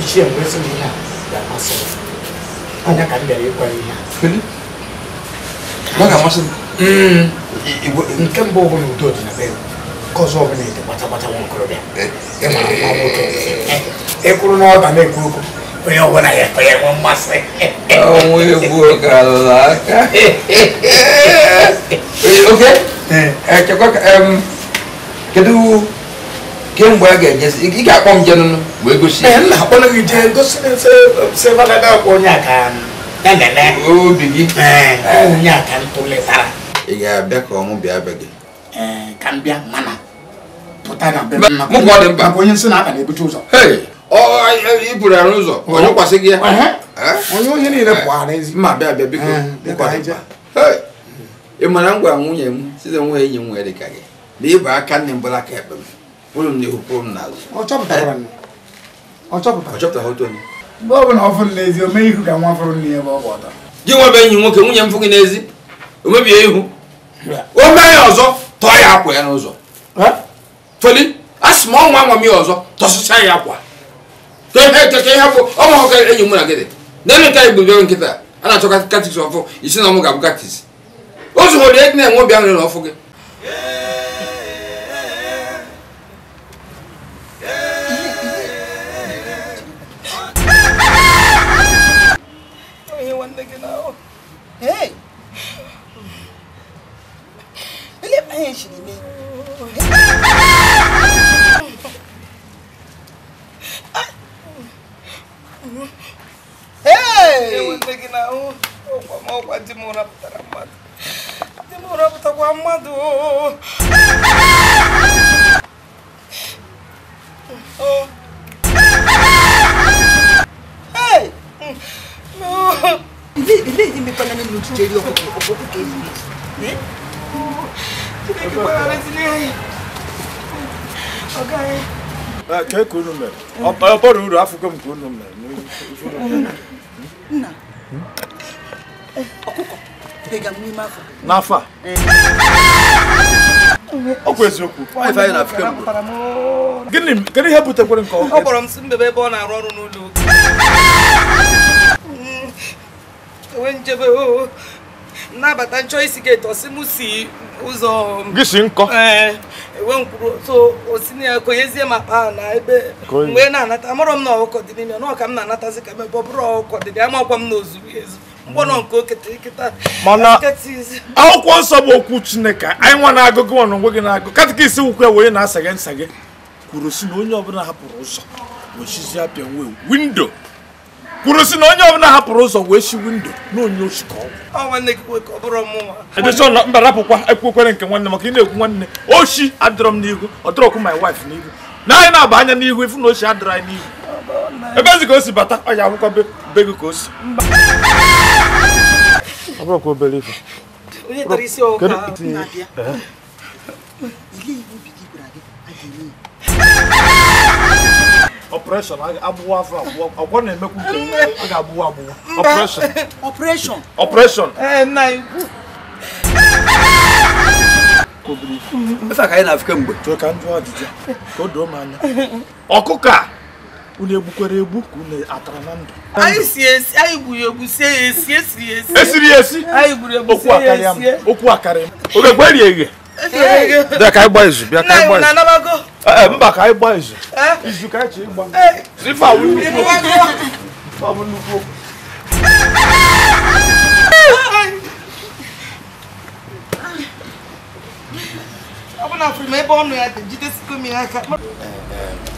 ichie mgbezighị ihe a ga-amasị anya ka m bịara ịkwa ihe a mm. nke mbụ ọ udo dị na be nke ọzọ ọ ede gbatagbata nwa okorobịa e, e, ịkwụrụ e, na ọba na-ekwu okwu onye ọbụla ya ekwe ya mmasị kedu kemgbe a ga-ejezi ị ga-akpọ m jenụnụ wee gosi gosi obi gị ị ga-abịa ka ọnwụ bịa be gị ka arụ ụzọ onye kwasị gị ya onye ohi niile pụara ma bịa bịa biko ị mara ngwa nwunye m site nwa enyi m nwere ka gị na ịba aka nne m bụla aka ekpe m bụrụ m n'ihu pụrụ m n'azụ ọ chọpụtara mgbe ọ bụla ọ fụrụ n'ezi o mee ihu ka nwa fụrụ nne ebe ọ bụ ọta gị nwe enyi nwoke nwunye m fụ n'ezi o mebie ihu o mee ya ọzọ tọọ ya akwa ya n'ụzọ feli a sị ma ọ nwa m ya ọzọ tọsịcha ya akwa keke ihe bụ ọ mahụ ka enyi mụ na gịdị na-elu nta bịa nkịta a na-achọ katis ọfụ isi na ọmụ ga-abụ katis o zuhụrụ ya na-enwe obi aṅụrị na ọfụ gị enwetaghị na ahụ ọkwa ọkwa di m rapụtara mmadụ di m rapụtakwa mmadụ ilé ìdí mi pẹ́ lẹ́nu lójú jẹ́rí ọkọ̀ ọkọ̀ kéèyàn rẹ̀. Ṣé kí wọ́n rẹ̀ sí ní ayé? Ọ̀gá rẹ̀. Kẹ́kọ̀ọ́ nù nna ọkụkọ dịga n'ime afọ n'afọ a ọkwa eziokwu na gịnị kedu ihe butekwere nke ọ kpọrọ m mbebe ebe ọ na-arụ ọrụ n'ụlọ enwe njebe oo oh. nnabata nchọ isi gate ọsị m si ụzọ gị si nkọ enwe eh, mkpụrụ so osina ya konyezie m akpa ahụ na ebe mgbe na-anata amụrụ m na ọkụkọ dị n'ime na ọka m na-anatazi ka mebe ọ bụrụ ọkụkọ dị ya makwa m na ozuru ezu mkpọnọ nke oketeketa mana akwụkwọ nsọ bụ okwu chineke anyị nwa na-agụ gị nwa na onwe gị na-agụ katikisi ukwu wee na-asa gị nsa gị kwuru si na onye ọbụla hapụrụ ụzọ wechizi apịa nwe windo kwuru si na onye ọbụla hapụrụ ụzọ wee si windo na onye ochi ka ọgwụ mba rapụkwa ekwekwere nke nwanne maka ị na-ekwu nwanne ochi adịrọ m n'ihu ọ dịrọkwu my wife n'ihu na anyị na-aba anya n'ihu ifu na ochi adịrọ anyị n'ihu ebe ezi ka o si bata ọ ya akwụkwọ be gị ka o si obere operation abuwa afa ọgbọ na emeku nke ọ ga abuwa abuwa operation operation operation eh nai esa ka anyị na-afika mgbe chọọ ka m ajụjụ ka o doo m anya ọkụkọ a unu egbukwara egbu ka unu atara na ndụ anyị si esi anyị gburu egbu sie ya esi esiri ya esi esiri ya esi okwu akarị m okwu akarị m oge gwerie eghe bịa ka anyị gbaa izu bịa ka anyị gbaa izu ee eh, eh, mba ka anyị gbaa izu eh? izu ka anyị ji ịgba ife awụ nnukwu awụ nnukwu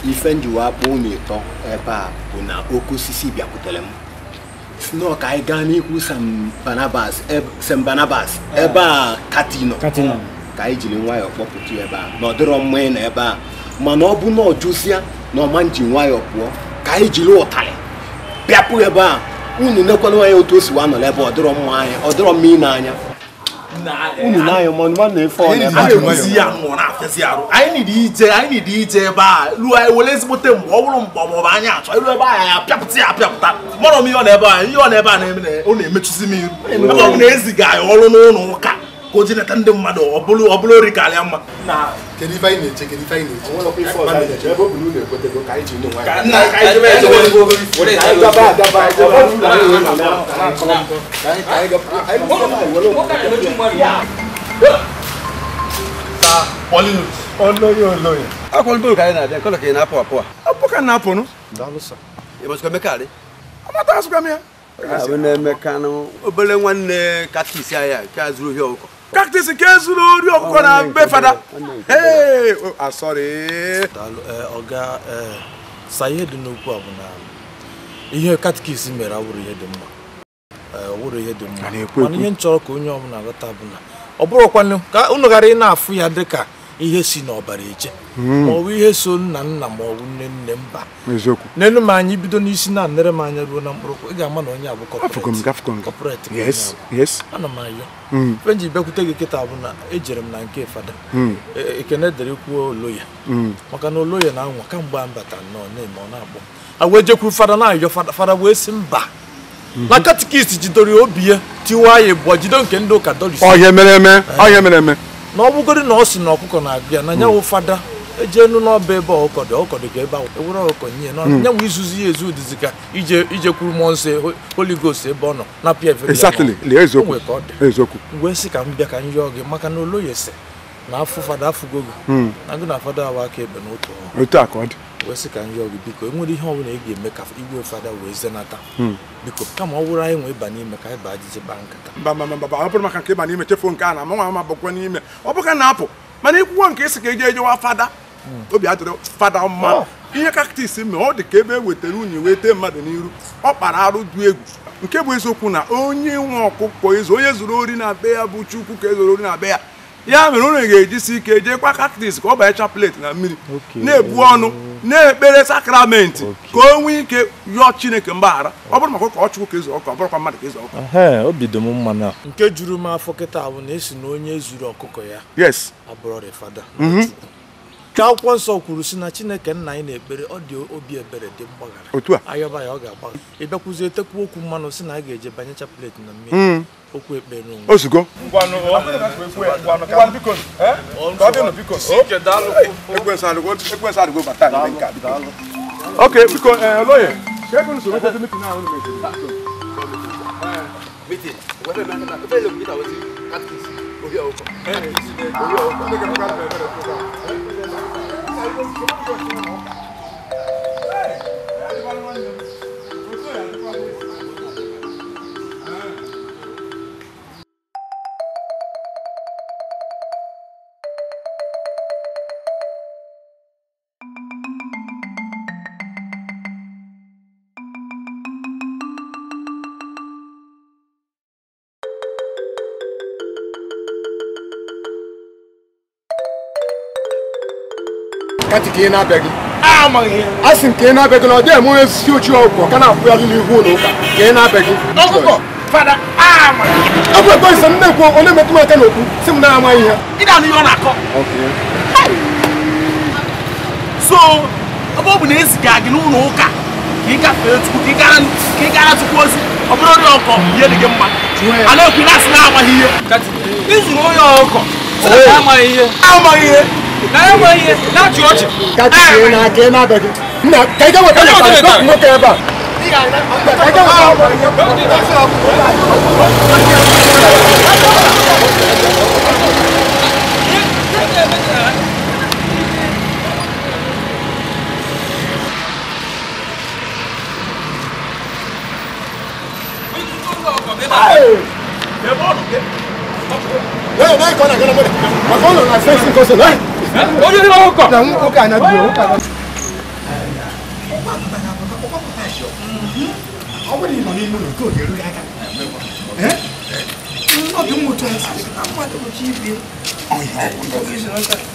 ife njiwa akpụ unu ịtọ ebe a bụ na oke osisi bịakwutere m snoo ka anyị gaa n'ihu Sam Barnabas ebe a katino ka anyị jiri nwayọọ kpọpụta ebe a na ọ dịrọ mma ị nọ ebe a mana ọ bụ na ọ jụsịa na ọma nji nwayọọ pụọ ka anyị jiri ụtarị bịapụ ebe a unu nekwala anya otu o si wa ebe ọ dịrọ mma anya ọ dịrọ mma anya eh, unu na na-efe ebe a ruo anyị were ezigbote ọ bụrụ mgbe ọbụ achọ ebe ya ya apịapụta m ihe ọ na ebe a ihe ọ na ebe a ọ na-emechuzi m iru ebe ọ bụ na eziga ọrụ n'ụlọ ụka ka ndị mmadụ ọ bụrụ ori ka alịa karịa mma na akwụkwọ ka anyị na-abịa nkọlọ ka ị na-apụ apụ a apụ ka na-apụnụ amata asụkwa m ya na obere nwanne katis ahịa nke a zụrụ ohi ọkụkọ kaktis nke zuru ori ọkụkọ na mbe fada oh, ah, eh, ọga eh, sa ihe dị n'okwu a bụ na ihe katikis mere awụrụ ihe dị mma eh, ihe dị mma mana ihe m ka onye ọbụla ghọta bụ na ọ bụrụkwanụ ka ghara ị na-afụ ya dịka ihe si n'ọbara eje hmm. maọbụ ihe so nna nna maọbụ nne nne mba nenu m anya bido n'isi na nere m anya ruo na mkpụrụkwụ ị ga-ama na onye abụ kọpọret ana m ayọ hmm. e ji bịakwute gị kịta bụ na ejere m na nke fada hmm. e, ekene dere kwuo oloya maka na oloya na anwa kamgbe a mbata nnọọ na-eme ọ na-akpọ agwa ejekwu fada na-ayọ fada wee sị mba na katikist jidoro obi ya tiwa ya bụ jido nke ndị ụka doris ọhịa mere eme eh. ọhịa mere eme na ọ bụgoro na ọ na ọkụkọ na abịa na nyanwụ fada eje nu n'ọba ebe ọkụkọ dị ọkụkọ dị ka ebe ahụ ewere ọkụkọ nye na hmm. nyanwụ izuzi ya ezu dịzi ka ije ije kwuru mmụọ nsọ Holy Ghost ebe ọ nọ na pia eziokwu wee sị ka m bịa ka m yọọ gị maka na oloyese Hmm. na afọ fada afụgogo na ngụ na fada awa aka ebe n'otu ọrụ otu aka dị wee sị ka ndị ọgụ biko enwere ihe ọbụla ị ga-eme ka igwe fada wee zenata hmm. biko kama ọ bụrụ anyị nwee ịba n'ime ka anyị ajụjụ baa nkata mba ọ bụrụ maka nke ịba n'ime chefuo nke a na amanwa ama bụkwa n'ime ọ bụka na-apụ mana ikwuwa nke ịsị ka eje ejewa fada hmm. obi adịrị fada mma oh. ihe kaktis mee ọ dị ka ebe e wetara unyi wee tee mmadụ n'iru ọ kpara arụ du egwu nke bụ eziokwu na onye nwe ọkụkọ onye ori na be ya bụ chukwu ka e na be ya ya mere unu ga-ejisi ike jeekwa kaktis ka ọ banye chapelet na mmiri na-ebu ọnụ na-ekpere sakramenti ka o nwee ike yọọ chineke mgbaghara ọ bụrụ maka ụka ọchụkwụ ka ezu e ọkụ ọ bụrụkwa mmadụ ka ezu ọkụ obido m mmanụ nke juru m afọ kịta bụ na esi na onye zuru ọkụkọ ya yes abụrọ the ka akwụkwọ nsọ kwuru si na chineke nna anyị na-ekpere ọ dị obi ebere dị mgbaghara otu a ayọba ya ọ ga-agbagha ịbịakwuzi etekwa okwu mmanụ si na a ga-eje banye chapelet na mmiri hmm. okwu ekpere onwe ozugbo ok biko eh, lawyer ṣẹ́gun sọ̀rọ̀ tó ti mítì náà ọ̀nà mẹ́tì. mítì wẹ́rẹ́ mi náà fẹ́ẹ́ lè mú ìtàwé sí kátkìsì orí ọ̀kọ̀. orí ọ̀kọ̀. 哎，我吃不了这个。kati ka ị na-abịaghị a sị m ka ị na-abịaghị na ọ dịghị enwe ezi uchi ọgwụgwọ ka na-akwụgharị n'ihu ụlọ ụka ka ị na-abịaghị ọgwụ ekwe ise m na-ekwu onye metụ m aka n'okwu si m na-amaghị ihe so ebe ọ bụ na eziga gị n'ụlọ ụka ka ị gafere chukwu ka ị gara chukwu ozi ọ bụrụ onye ọkọ ihe dị gị mma a na-ekwu na asị na-amaghị ihe ịzụrụ onye ọkọ amaghị ihe amaghị ihe na Hey! Hey, come on, come on, come on. Come on, I'm facing, come on, hey! onye hụrụ na biro na ọ bụrụ na ị nọ ụlọ nke oge aka mmụta mmadụ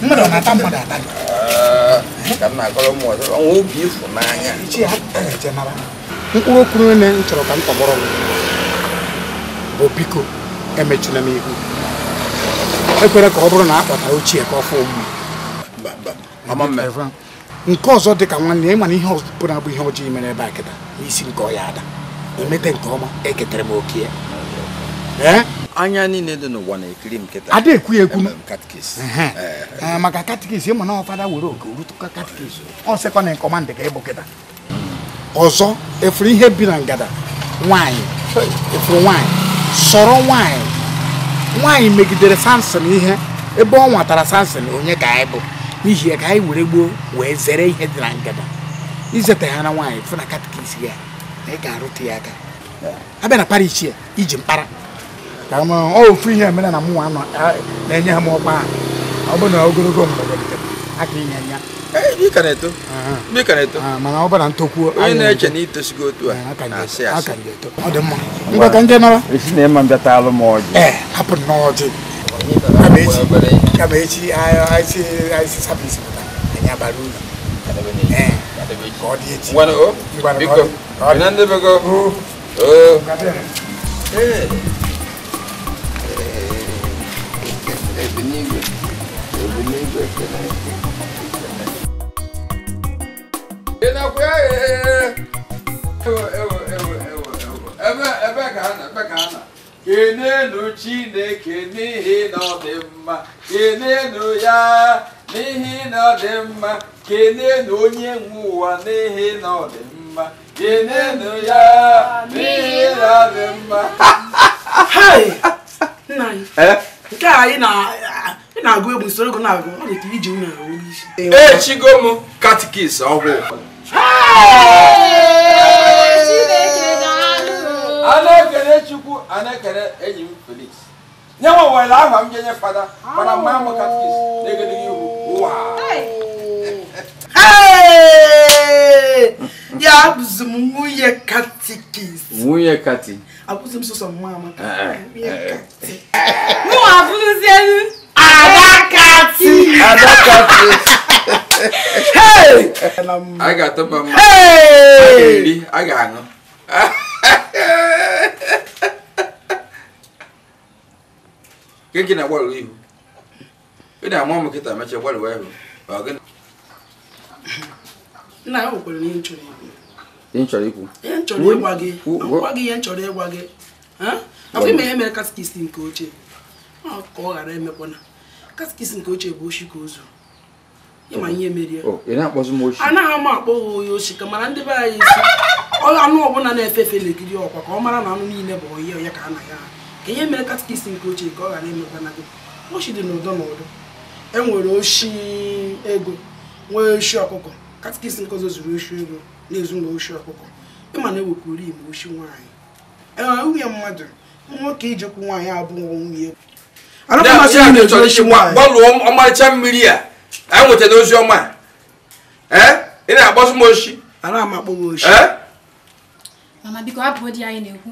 mmadụ na-ata mmadụ ata na-akọrọ chọrọ ka m tọgbọrọ m bụ biko emechula m ihu ekwere ka na ochie ka ọ fụ nke ọzọ dị ka nwanne ya mana ihe ọzọ na-abụ ihe ọjọọ mere ebe a kịta n'isi nke ọya ada emete nke ọma eketara m oke ya anya niile dị n'ụwa na-ekiri m kịta ada ekwu ekwu maka katikis ịma na ọfada were oke rutụka katikis ọ sịkwa na nke ọma ndị ka ịbụ kịta ọzọ efuru ihe bi na ngada nwaanyị efuru nwaanyị sọrọ nwaanyị nwaanyị megidere sansin ihe ebe ọ nwatara sansin onye ka anyị bụ n'ihi ya ka anyị were gboo wee zere ihe dị na ngada izeta ya na nwaanyị fụ na katikis ya na ị ga-arụta ya aka abịa na parish ya iji mkpara ka m ofu ihe mere na mụnwa nọ na-enye ha m ọkpa ahụ ọ bụ na ogologo mgbe aka inye ya mana ọ ọ dị mma ngwa ka nje nara hapụ kamechi aisi aisi sapisi kuta anya baruna eh kodi echi wana o biko binande biko o eh ebinigwe ebinigwe kena ina kwa eh ewe ewe ewe ewe ebe ebe ka ana ebe ka ana kenenu chineke n'ihi na mma kenenu ya n'ihi na mma kenenu onye nwe ụwa n'ihi na ọ dị mma kenenu ya n'ihi na mma eh? nke a anyị na-agụ egwu soro ego na-agụ ọ dị ka iji nwunye echigo m katikis ọgwụ a na-ekele chukwu a enyi m felix nye nwe were aha m ga-enye fada mana mma m katkis na-egedegị ihu ụwa ya abụzi m nwunye katikis nwunye kati abụzi m sọsọ mma amaka eh, eh, eh, mụ abụrụzi elu adakati adakati a ga-atọba mma a ga-eri a ga-aṅụ nke gị na-agbalị ihu ị na-ama ụmụ nkịta mechaa gbalịwa ihu nna ya nwekwara ihe m chọrọ ikwu ihe m chọrọ ịgwa gị gwa gị ihe nchọrọ ịgwa gị afọ ime ihe mere katikist nke ochie ka ọ ghara emekwana katikist nke ochie bụ oshi ka ozu ịma ihe merie anaghị oh, m akpọ ha onye oshi ka mara ndị be anyị isi ọla anụ ọbụla na-efe efe na-ekiri ọkwa ka ọ mara na anụ niile bụ onye onye ka a na ya ahụ ka ihe mere katikist nke ochie ka ọ ghara na gị oshi dị n'ụdọ n'ụdọ e nwere oshi ego nwee oshi ọkụkọ katikist nke ọzọ zuru oshi ego na-ezu na oshi ọkụkọ ịma na ewekuri igbo oshi nwaanyị enwere nwunye mmadụ nwoke ijekwu nwaanyị abụghị nwunye gbalụọ ọmarịcha mmiri a anyị nwetara ozi ọma ị na-agbasụ m oshi a m amakpọ oshi mana biko abụọ dị anyị na-ekwu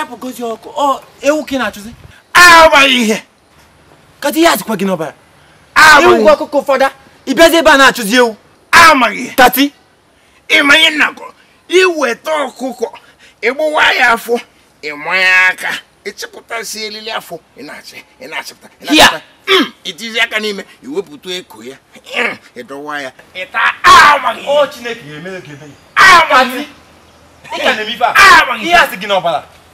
ya bụ gozi ọkụ ọ ewu ka ị na-achụzi agbaghị ihe kata ihe achịkwa gị n'ọbara ewu gị ọkụkọ ụfọdụ ịbịazi ebe a na-achụzi ewu amaghị tati ịmanye nnakọ iweta ọkụkọ ịgbawa ya afọ ịmanya aka ịchịpụtasị elili afọ ị na-achị ị na-achịpụta ị na-achịpụta itizi aka n'ime iwepụta eko ya ịdọwa ya ịta amaghị o chineke ga-emere gị ebe ya amaghị ihe a sị gị n'ọbara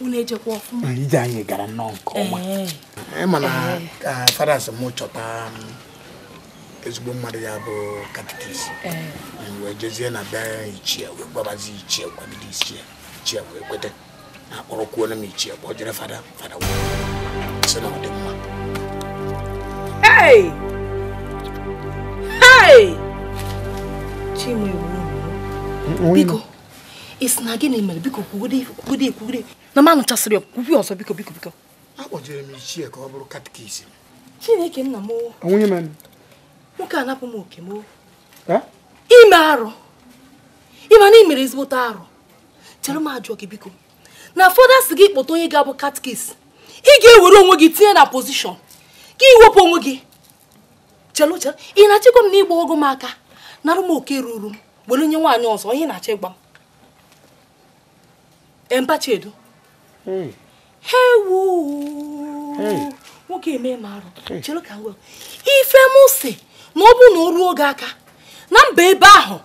unu ejekwa ọfụma ije anyị gara nnọọ nke ọma ịma eh, eh, na eh. ka fadas m chọta um, ezigbo mmadụ ya bụ katikis wee jezie na be ichie wee gbabazi ichie kwabili ichie ichie wee kwete akpọrọkwuola m ichie kpọ jere fada fada sị na ọ dị mma biko isi na gịnị mere biko kwugide ekwugide na m anụchasịrị ọkwụkwụ ọzọ biko biko biko akpọjere m ichie ka ọ bụrụ katikizm chineke nna m nwoke a napụ m oke m ime arụ ịma na ị mere ezigbote arụ chere m ajụọ gị biko na fọda si gị kpọta onye ga-abụ katikis ị ga-ewere onwe gị tinye na pozishọn ka iwepụ onwe gị chelụ chelụ ị na-achịkwa m na ịgba ọgụ m aka narụ m oke ruru m were nye nwaanyị ọzọ onye na-achọ ịgba m edo. Chiedu hewu nwoke eme ma arụ chere ka ngwa ife m si na ọ bụrụ na oru ruo oge aka na mba ebe ahụ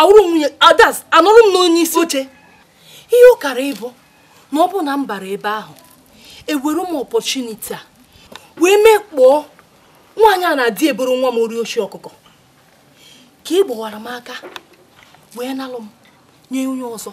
awụrụ nwunye adas ah, anụrụ m n'onye isi oche ihe ụkara ịbụ na ọ na m bara ebe ahụ ewere m ọpọchuniti a wee mekpọọ nwaanyị a na-adị eboro nwa m ori ochi ọkụkọ ka ị e gbawara m aka wee nalụ m nye onye ọzọ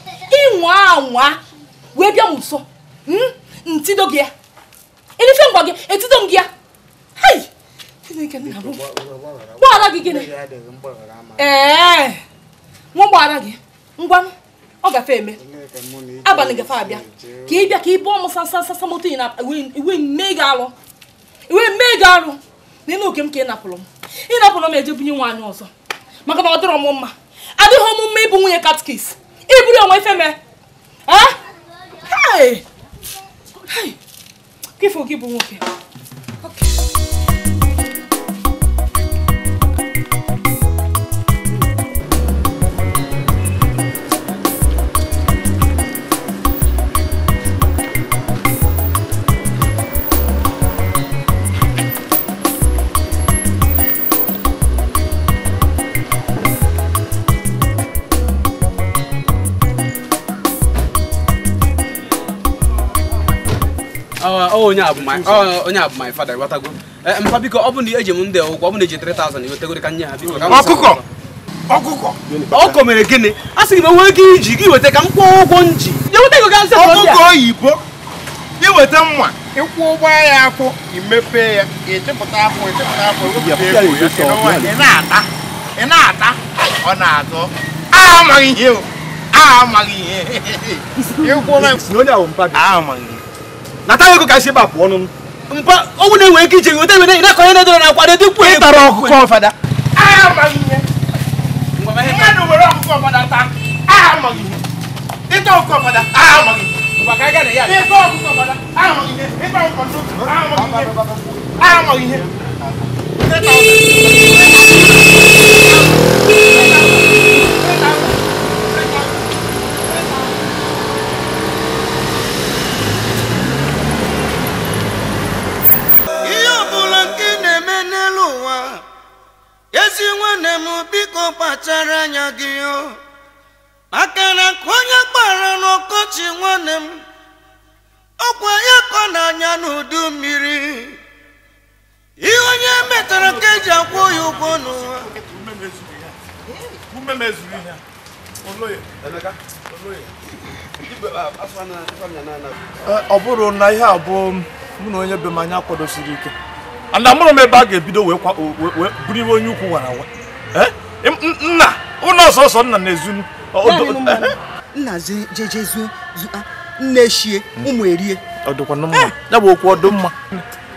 ịnwa anwa wee bịa m nso hmm? ntido gị ya elife ngwa gị etido m gị ya gbaghara gị gịnị ee nwa gbaghara gị ngwa ọ gafe eme abalị gafe abịa ka ị bịa ka ị bụọ m sasasasa moto ị na iwe mee gị alụ iwe mee gị alụ na ịna oge m ka ị napụrụ m ị napụrụ m eje bunye nwaanyị ọzọ maka na ọ dịrọ m mma adịghị ọmụmụ ịbụ nwunye katkis ibùdó ọmọ ife mẹ kí fún kí bu wọn kẹ. onye oh, oh, oh, abụ my father ịghọtago eh, mpa biko ọ bụ na eji m ndị ụgwọ ọ bụ na eji 3000 iwetegoro ka nye ha biko ọkụkọ ọkụkọ ọkọ mere gịnị a sị gị m nwee ike iji gị weta ka m kwụọ ụgwọ nji ọkụkọ oyibo iweta mma ịkwụ ụgbọ ya akwụ imepe ya ịchịpụta akwụ ịchịpụta akwụ ị na-ata ọ na-atọ amaghị ihe amaghị ihe ịkwụ na onye ahụ mpa amaghị natara ego ka esi ebe apụọ n'ọnụ mpa ọnwụ na-enwe ike ije nweta ebe na kọnye nedoro na akwado dịkwu ị tara ọkụkọ fada mmadụ ah, were ọkụkọ fada taa aha amaghị ihe ịta ọkụkọ fada aha amaghị ihe ịta ọkụkọ fada aha amaghị ihe ịta ọkụkọ fada aha amaghị ihe aha amaghị ihe ịta ọkụkọ fada aha amaghị ihe n'elu ụwa ezi nwanne m biko kpachara anya gị o maka na ka onye kpara n'ọkọchị nwanne m ọkwa ya kọ n'anya n'udu mmiri ihe onye metara ka eji akwụ ya ụgwọ n'ụwa ọ bụrụ na ihe abụọ mụ na onye be anya kwadosiri ike and amụrụ m ebe a ga-ebido wee buru iwe onye ukwu wara awa. nna ụlọ ọsọsọ nna na-ezu nna jejezuo nne eshie ụmụ erie ya bụ okwu ọdụ mma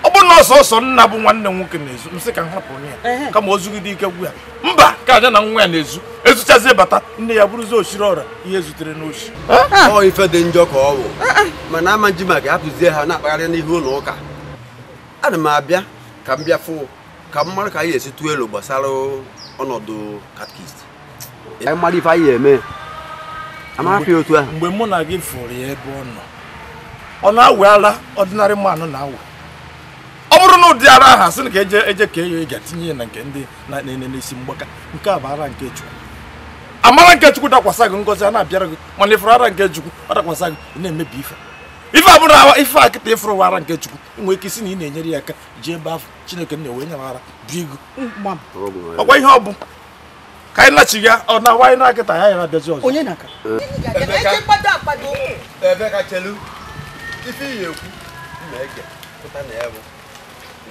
ọ bụrụ na ọsọsọ nna bụ nwanne nwoke na-ezu nsị ka nhapụ hapụ onye ya kama o ike gwu ya mba ka aja na nwa ya na-ezu ezuchazie bata nne ya bụrụzi osiri ọra ihe zutere n'oshi eh? ah. ọ ife dị njọ ka ọ bụ eh, eh. mana ama nji ma ga-apụzie ha na-akpagharị n'ihu ụlọ ụka ana m abịa ka m bịafụ ka m mara ka anyị esi tụọ elu gbasara ọnọdụ katkist mmadụ ife anyị eme amarafi otu ahụ mgbe mụ na gị fụrụ ya ebe ọ nọ ọ na-awe ara ọdịnarị mmanụ na-awe ọ bụrụ na ụdị ara ahụ asị na ka eje eje ka enyo ga tinye ya na nke ndị na-enene n'isi mgbaka nke a bụ ara nke chukwu amara nke chukwu dakwasa gị ngozi a na-abịara gị mana ịfụrụ ara nke chukwu ọ dakwasa gị na-emebi ife ife abụrụ awa ife a kịta ịfụrụ wara nke chukwu nwee ike isi na ị na-enyere ya aka ji ebe afọ chineke nna wee nyamara bụ ego ọkwa ihe ọ bụ ka anyị lachi ya ọ na awa na akịta ya yara abịazi ọzọ onye na-aka ekwu na-ege pụta na ya bụ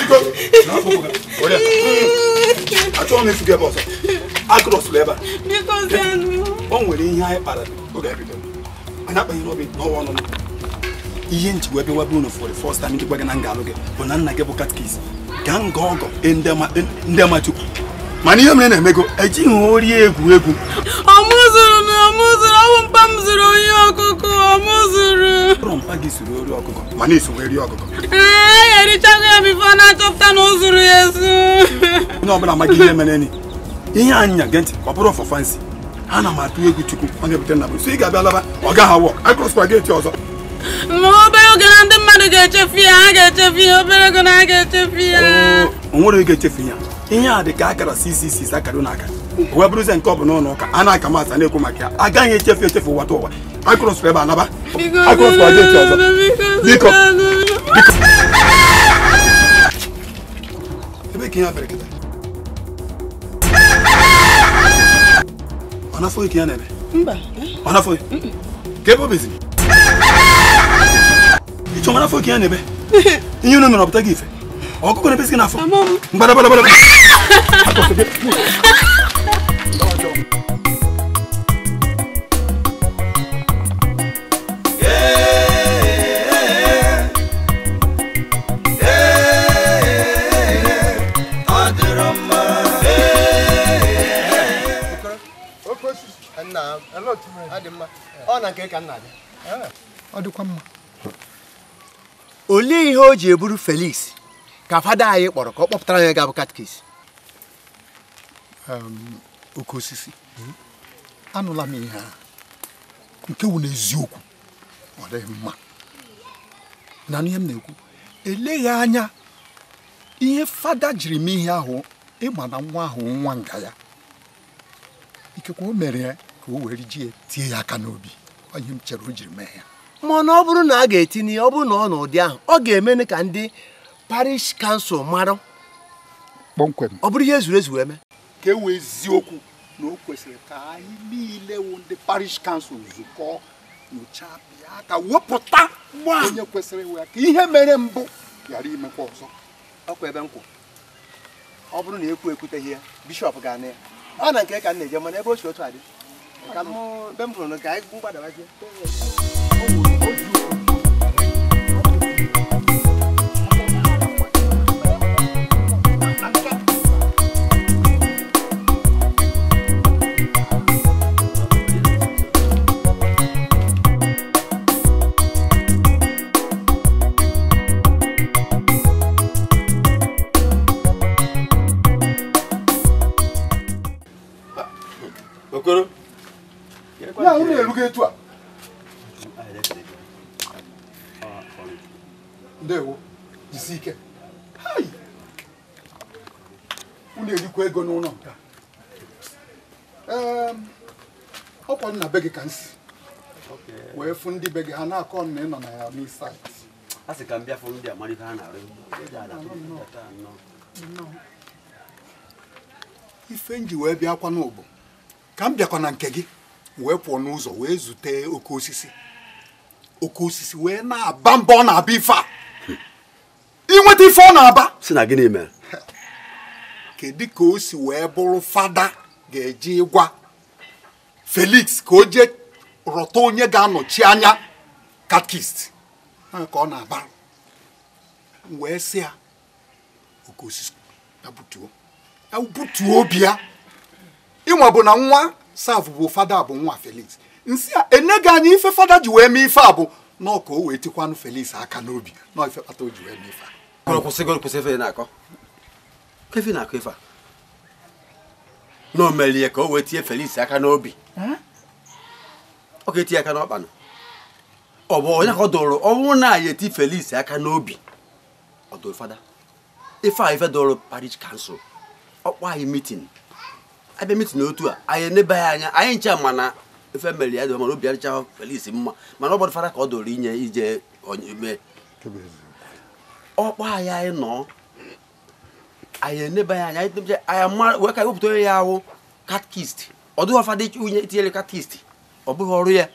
Chico, n'afọwọ́ o yẹ achọ m ifuge bọsọ akrọsụlụ ebe a o nwere ihe anyị kpara oge ebido anyị akpanyere obi n'ọwa ọnụ ihe njiwe ebe webe unu fọrọ fọst taim ndị gwa gị na nga alụ gị bụ na nna gị bụ katkis gaa nga ọgọ ndị ama chukwu mana ihe mere na-emego ejighị ori egwu ọmụzụrụ na ọmụzụrụ ọwụ m zụrụ onye ọkụkọ ọmụzụrụ ụrụ gị ori ọkụkọ mana ọkụkọ ee ya erichago ya bifo na-achọpụta na zuru ya ezu onye ọbụla amaghị ihe mere ni ihe anyị nya gee ntị ha na m egwu chukwu ọ na-ebute na bụ ị ga-abịa laba ọ gaghị awọ akrọspa eti ọzọ ma obere oge na ndị mmadụ ga-echefu ya ha ga-echefu ya obere oge na ha ga-echefu ya oh, o nwere echefu ya ihe a dị ka akara ccc akara na aka wee bụrụzie nke ọ bụ n'ụlọ ụka a na-aka masị na-ekwu maka ya agaghị echefu echefu ụwa ụwa akụrụsụrụ ebe anaba akụrụsụrụ aja echi ọzọ biko biko ebe ka ihe abịara kịta ọ na-afọghị ka ya na-eme ọ na-afọghị ka ebe obizi ịchọ ọ na-afọghị ka ya na-eme ihe unu nọrọ pụta gị ife ọkụkọ na isi gị n'afọ mgbadagbadagbada ọ dịkwa mma olee ihe o ji eburu Felix ka fada anyị kpọrọ ka ọ kpọpụtara anyị ga-abụ katkis oke osisi anụla m ihe ahụ nke wụ n'eziokwu ọ dịghị mma na ihe m na-ekwu eleghị anya ihe fada jiri m ihe ahụ ịma na nwa ahụ nwa nga ya ikekwe o mere ya ka o were ji tie ya aka n'obi onye m chere o jiri mee ya mana ọ bụrụ na a ga-etinye ya ọ bụrụ na ọ n'ụdị ahụ ọ ga emenụ ka ndị parish council mara kpọmkwem ọ bụrụ ihe ezuru ezu eme ka e wee ziokwu na o kwesịrị ka anyị niile wụ ndị parish council zukọ nyochaa bịa ka wepụta nwaanyị kwesịrị iwe ka ihe mere mbụ ghara imekwa ọzọ ọkwa ebe nkwụ ọ bụrụ na ekwu ekwute ihe bishọp ga-ana ya ọ na nke ka m na-eje mana ebe o si otu adị ka m be m hụrụ ka anyị gbadabazie ahụ na-erugo etu a ndewo jisi ike unu erikwa ego n'ụlọ nke a ọkwa nna be gị ka m wee fụ ndị be gị ha na-akọ na ị nọ na ya n'isi a sị ka m bịa fụ ndị amara ihe ha na-arụ ife m ji wee bịakwa n'ụbụ ka m bịakwa na nke gị wee pụọ n'ụzọ wee zute oke osisi oke osisi wee na-aba mbọ ọ na-aba ife a inweta ife ọ na-aba si na gịnị mere kedu ka o si wee bụrụ fada ga-eji ịgwa Felix ka o jee rọta onye ga-anọchi anya katkist ka ọ na-aba wee si ya oke osisi ya butuo obi ya ịnwa bụ na nwa serve bụ fada bụ nwa felix nsi a enye gị anyị ife fada ji wee mee ife a bụ nọọ o wee tikwanụ felix aka n'obi nọọ ife kpata o ji wee mee ife a kwụsị ife na-akọ ife na-akọ ife a na o melie ka o wee tie felix aka n'obi ọ ga-eti aka n'ọkpanụ ọ bụ onye ka ọ dụrụ ọnwụ na ya eti felix aka n'obi ọ dụrụ fada ife a ife dụrụ parish council ọkpọ anyị mitin abịa mitin otu a anyị enebaghị anya anyị ncha mana ife mere ya dị mana obi adịcha Felix mma mana ọ gbadofara ka ọ doro inye ije onyeme ọkpọ anyị anyị nọ anyị enebaghị anya anyị wee ka wepụta onye ya ahụ katkist ọ dịghị ọfa dị unye itinyere katkist ọ bụghị ọrụ ya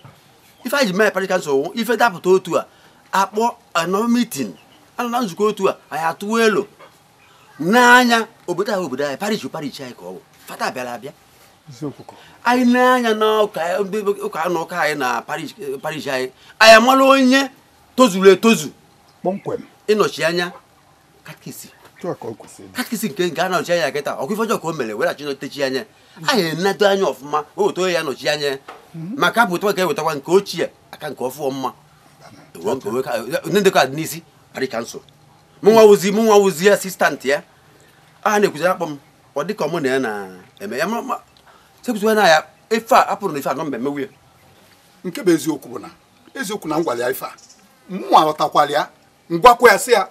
ife anyị ji mee parịka nsogbu ife dapụta otu a akpọ anọ mitin anọ na nzukọ otu a anyị atụwa elu n'anya obodo anyị obodo anyị parish parish anyị ka ọ bụ fata abịala abịa anyị na-anya n'ụka na anyị na parish anyị anyị amala onye tozuru etozu ịnọchi anya katkisi nke nke a na anya kịta ọkụ ife ka o mere weghachi nọtechi anya anyị enedo anya ọfụma ya anya mhm. maka ka ewetakwa nke ochie aka nke ọfụọ mma ndekọ asistantị ya a na-ekwuzi akpọ ọ dịka ọmụ na ya na-eme ya sepụtụ na ya ife uh, a apụrụ na ife anọ mmemme nwunye nke bụ eziokwu bụ na eziokwu na ngwara ya ife a mụnwa ghọtakwara ya ngwakwa ya sị ya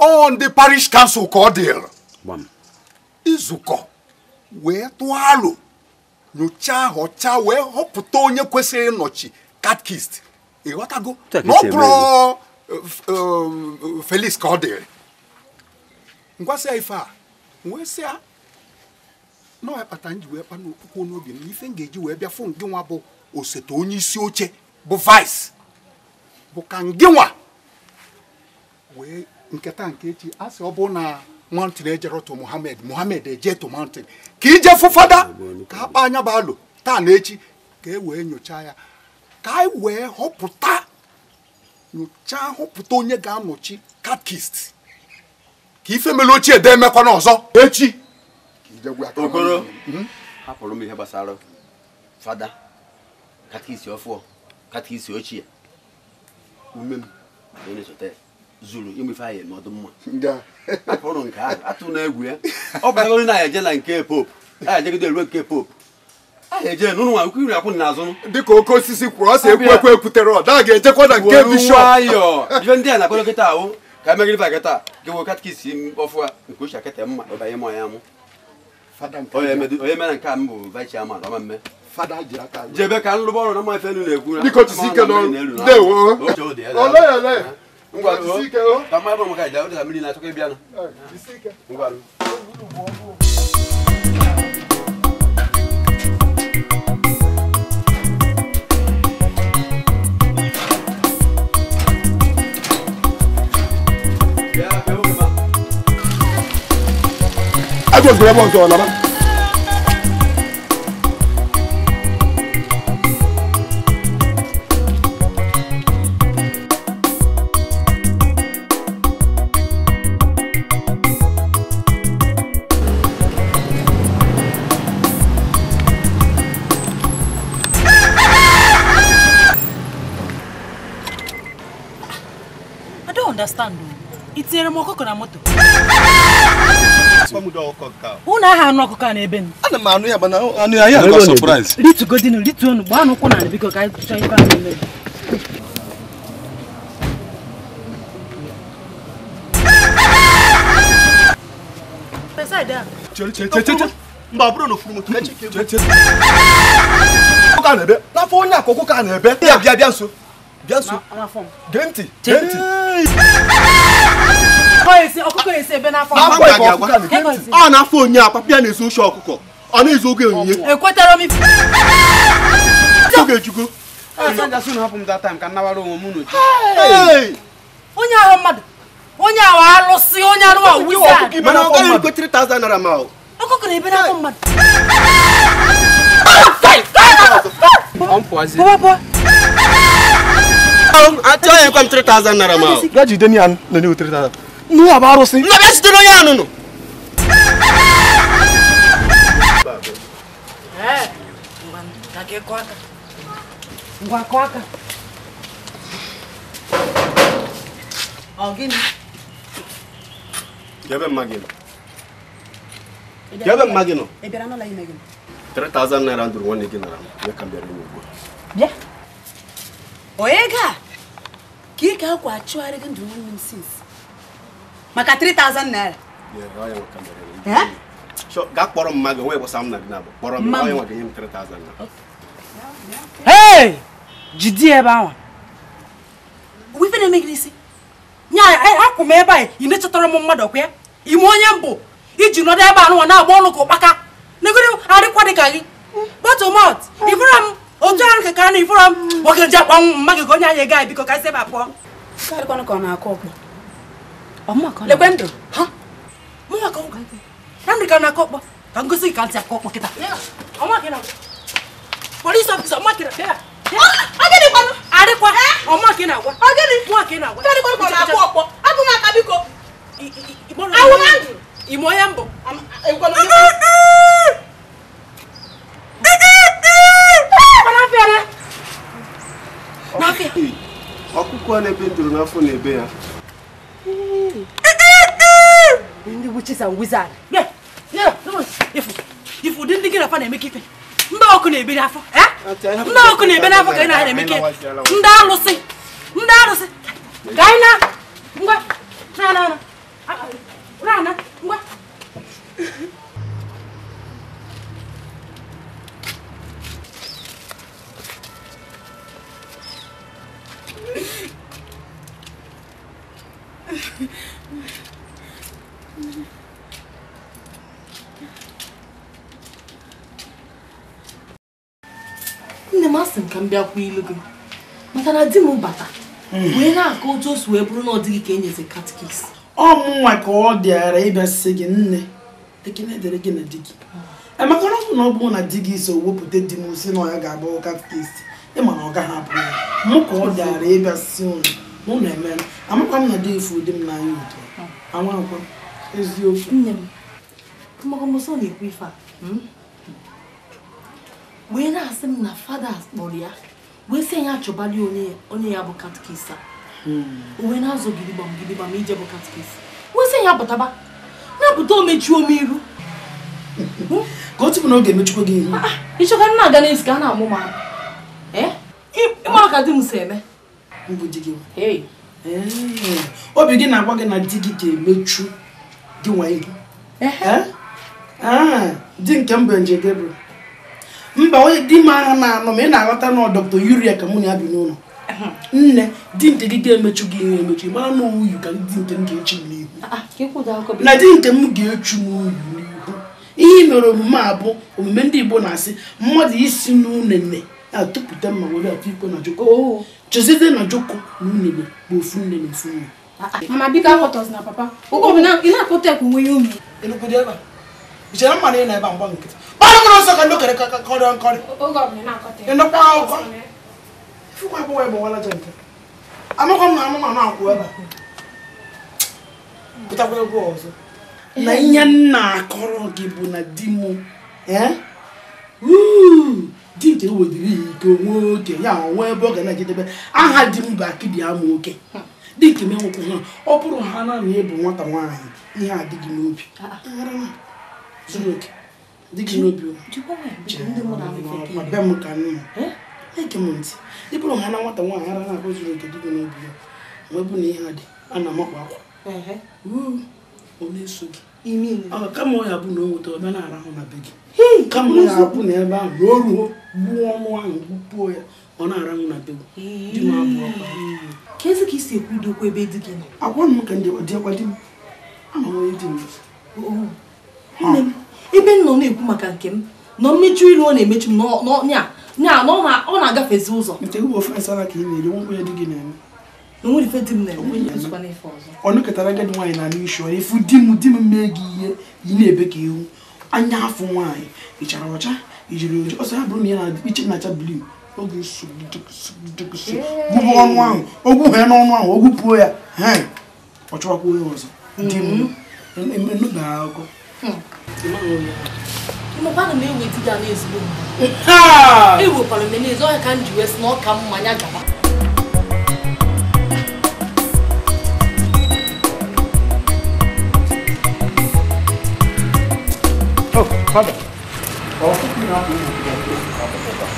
ọ ndị parish kansụl ka ọ dịrị izukọ wee tụọ alo nyochaa họchaa wee họpụta onye kwesịrị ịnọchi katkist ịghọtago na ọ bụrụ felix ka ọ dịrị ngwasị ya ife a wee sị ya na ọya kpatara ji wee kpana okpukwe n'obi m ife m ga-eji wee bịa fụ ngị nwa bụ osote onye isi oche bụ vice bụ ka ngị nwa wee nketa nke echi a sị ọ bụ na mountain ejere to Muhammad Muhammad eje to mountain ka ije fụfada ka a anya bụ alụ taa na echi ka e wee nyochaa ya ka anyị e wee họpụta nyochaa họpụta onye ga-anọchi katkist ka ife mere ochie da emekwana ọzọ echi okoro mhm. hapụrụ m ihe gbasara fada katikisi ọfụọ katikisi ochie ume m na-esote zuru ịmụ ife anyị eme ọdụ mma hapụrụ nke ahụ atụ na egwu ya ọ bụrụgoro na anyị eje na nke pope anyị ejegide ruo nke pope aha eje n'ụlọ nwa nkwu iri akwụ dịka oke osisi kwuru ọ sị ekwu ekwu ekwutere ọ ga-ejekwa na nke bishọp nwayọọ ife ndị a na-akpọrọ kịta ahụ ka e megide ba kịta gị e wee katikisi ọfụa nke uche akịta mma ịbanye m ọnya mụ onye mere nke a m bụ vice chairman ọmamme jebe ka nlụba ọrụ na mmafe elu na-ekwu na ngwa ka mmadụ maka ije ụdịda mmiri na-achọkọ ịbịa na ngwa ẹjọ gbẹrẹ bọ sọ̀rọ̀ nàbà. I don't understand. though. It's a remote na moto unu aha anụ ọkụkọ a n'ebe m ana m anụ ya mana anụ ya ya ga surprise ritugodinu rituonu gbaa n'ụkwụ na biko ka anyị chọọ ife a na-eme mba bụrụ na ofuru moto ka e na-ebe n'afọ onye akụkụ ka na-ebe ya bịa bịa nso bịa nso gee ntị gee ntị ọ na-afọ onye a papịa na-ezu oche ọkụkọ ọ na-ezu oge onyinye oge ejugo onye ahụ mmadụ onye ahụ alụsị onye arụ a wizard mana ọ gaghị ekwe 3000 naira ma ọ ọkụkọ na ebe n'afọ mmadụ achọghị ekwe m 3000 naira ma ọ gaa jide ya nọ n'ihu 3000 nnu bụ arụsị nna bịa site n'onye anụnụ Ebe mma gị nọ? Ebe naira ndụrụ nwanne gị nara ya ka bịara ugbu a. Bịa. Onye ga ka ị ga-akwa achụgharị gị ndụrụ nwanne m maka 3000 naira gaa kpọrọ m mmadụ nwee gbasa m na gị kpọrọ m onye nwa ga-enye m 3000 naira Hey! Jidi ebe ahụ. Wife Nya akwụ m ebe a ị mechọtara m mmadụ ọkwa Ime onye mbụ iji nọdụ ebe anụwa na-agba ọnụ ka ụkpaka. Negoro arịkwa gị. m otu ahụ ka na ifụra m. nje mma gị ka onye anya biko ka ebe lekwe ndụ na ndụ ka na-akọ ọkpọ ka ka ntị akọ ka ị na-agwa nwa ka ị na-agwa ime onye mbụ ọkụkọ na-ebe ndụrụ n'afọ na-ebe ya Ndị witches and wizards. wizard. Ifu dị ndị gị nafa na-eme kịta. Ndị ọkụ na-ebere afọ. Ndị ọkụ na-ebere afọ ka ị na eme kịta. Ndị alụsị. Ndị alụsị. Ka anyị na. Ngwa. Na No, na. Na na. Ngwa. Ah, ah. nne m asị m ka m bịakwa ilu gị maka na di m bata wee na-akọ otu o si wee bụrụ na ọ dịghị ka e nyezi katikis ọ mụnwa ka ọ dịara ịbịasị gị nne ekene dere gị na di gị emeka na ọbụ na ọ bụrụ na di gị so wepụta di m si na ọ ya ga-abụ katikis ịma na ọ gaghị abụ ya mụ ka ọ dịara ịbịasị si ụlọ na eme amakwa m na dị ifu ụdị m n'anya udo anwa ah. akwa eziokwu nne m ọmọkọmọsọ na-ekwu ife a hmm? wee na-asị m na fada kpọrọ ya wee sị ya achọbali onye ya bụ katkisa hmm. o wee na-azụ gidigbam gidigbam ije bụ katkisa wee sị ya bataba na-apụta omechuo m iru hmm? ka o tupu na oge emechukwa gị ihu ah, ah, ịchọka na aga n'ezi ka a na-amụ ma eh? ịma ka di m si eme mbụ di gị obi gị na-agwa gị na di gị ga-emechu gị nwa ibu eh? ah, di nke m bụ nje Gabriel mba onye di m ahụ na-anọ ma ị na-aghọta na dọkịta Yuria ka mụ na ya bi n'ụlọ nne di nke gị ga-emechu gị ihe emechu mara na uyu ka di nke m ga-echu m n'ihu ah, ah, na di nke m ga-echu m uyu n'ihu ihe mere omume a bụ omume ndị Igbo na-asị mmadụ isi n'unene na-atụpụta mma were atụ ikwe na jụkọ oh. chezizie na na unu bụ ofu nne na ofu nna mana biko akpọtọzi na papa ụgwọ bụ na ị na-akpọta ekwu nwe ihe ebe ichere na ị na-ebe mgba nkịtị kpara mkpụrụ nsọ ka ndị okere ka nkọrị ịnụkwa akwụkwọ ifukwa akwụkwọ ebe jente amakwa m na amụma na-akwụ ebe pụtakwa egwu ọzọ na ihe nna akọrọ gị bụ na di m eh? dike wediri ike onwe oke ya onwe ebe ọ ga na-ejedebe aha di m bụ akịdị ama oke dike m enwekwa ha ọ bụrụ ha na na ịbụ nwata nwaanyị ihe adịghị n'obi ah, ah. zuru oke dịghị n'obi be m ka nna ege eh? m ntị ị bụrụ ha na nwata nwaanyị ara na-abụ zuru oke dịghị n'obi ya mgbe bụ na ihe adị a na-amakwa akwa ọ na-eso gị ah, kama ọ ya bụ na o nweta ọ bịa na-arahụ na be gị kama ọ apụ n'ebe ahụ ruo ruo gbuo ahụ gbupuo ya ọ na-ara na tebụl dị m abụọ ka isi ekwu dokwa ebe dị gị nọ agwa m ka dịakwa di m ama onye di m ebe m nọ na-ekwu maka nke m nọ mmechu iru ọ na-emechu m nya na ọ na-agafezi ụzọ ọ nwaanyị na anụ isi ọ efu di m di m mee gị ihe yi na-ebe ka ihu anya afọ nwaanyị ịchara ọcha ijiri oji ọsọ ya bụrụ na ya na iche na-acha blu oge nsogbu gbubu ọnụ ahụ ogwu ya n'ọnụ ahụ ogwupuo ya ọ chọwakwa onye ọzọ dị mm-hmm. emenụda e, akụkọ mmadụ na-eweta ya n'ezigbo ewekwara e m n'ezi ọhịa ka m ji wee sị na ọ ka mma ya gaba kábọ̀ ọ̀rọ̀ tó kìí náà kò ní ìgbà tó kábọ̀ kọ̀ọ̀kan.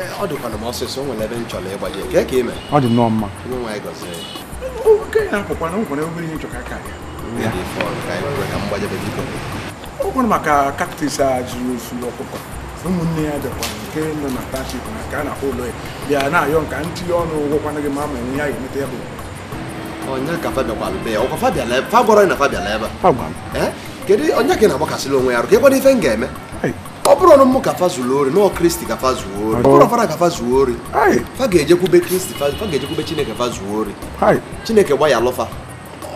ẹ wọ ọ dịkwa na m ọsịsọ o nwere ebe m chọrọ ịgbali ka ka ime ọ dị nnọọ mma onye nwa anyị gọzie oke oh, ya akpọkwa na nwere obere ihe chọka ka ya ọ gwara oh, maka kaktis a juru ozu ọkụkọ ụmụnne ya dịkwa nke nọ na plastik na ka a na-akpọ ụlọ ya bịa na-ayọ nka ntinye ọnụ ụgwọkwana gị ma ma enwe ihe a ga-emeta ya bụ onye ka fa bịakwara be ya ọkwa fa bịala ebe fa gwara na fa bịala ebe a kedu onye ka ị na-agbakasịla onwe ya arụ ka ịkwado ife m ga-eme ọ bụrụ ọnụ mụ ka fa zuru ori nọọ kristi ka fa zuo ori bụrụ ọfara ka fa zuo ori fa ga-ejekwube kristi fa ga-ejekwube chineke fa zuo ori chineke gbaya alụfa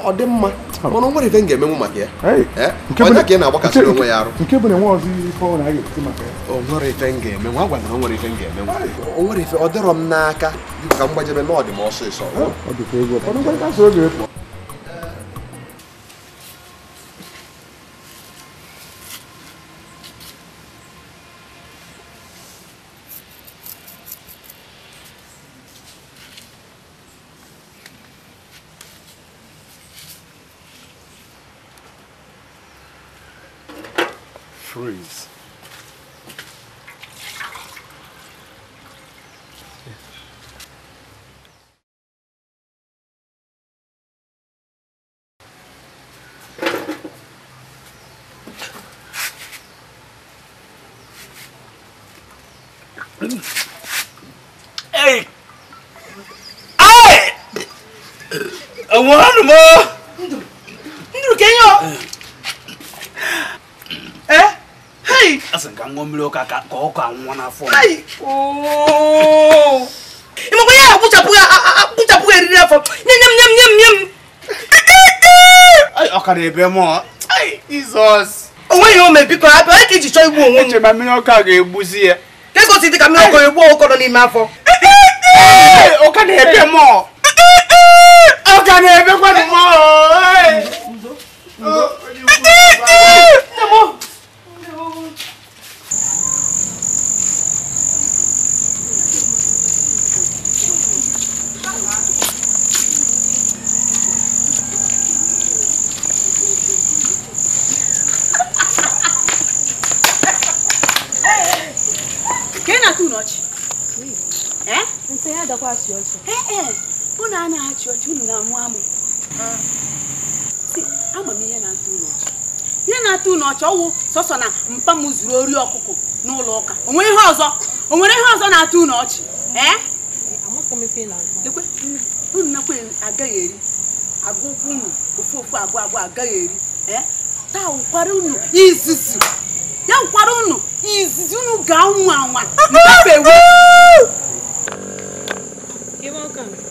ọ dị mma oh. mana nwere ife m ga-emenwu maka ya onye ka ị na-agbakasịrị onwe ya arụ o nwere ife m ga-emenwu a gwara nwere ife m ga-emenwu o nwere ife ọ dịrọ m n'aka ka m gbajebe n'ọdịm ọsịsọ mmiri ụka ka ọkụ anwụọ n'afọ ịmakwa ya akpụchapụ eriri afọ nye nye m nye m nye m nye m ọkara ebe mụọ jizọs onweghị ome biko hapụ onye ka iji chọọ igbu onwe m echema mmiri a ga-egbuzi ya kegosi ka mmiri ọka egbu ọkọrọ n'ime afọ ọ ka na-ebe mụọ ka na-ebekwa mụọ biko ya adakwa achị ọchị unu e, a na-achị ọchị unu na-amụ amụ ama m ihe na-atụ unu ọchị ihe na-atụ unu ọchị ọwụ sọsọ na mpa m zuru ori ọkụkọ n'ụlọ ụka o nwere ihe ọzọ o nwere ihe ọzọ na-atụ unu ọchị unu nakwa agaghị eri agụ ụkwụ unu ofu ofu abụọ abụọ agaghị eri taa ụkwara unu izizi ya ụkwara unu izizi unu ga-anwa anwa welcome.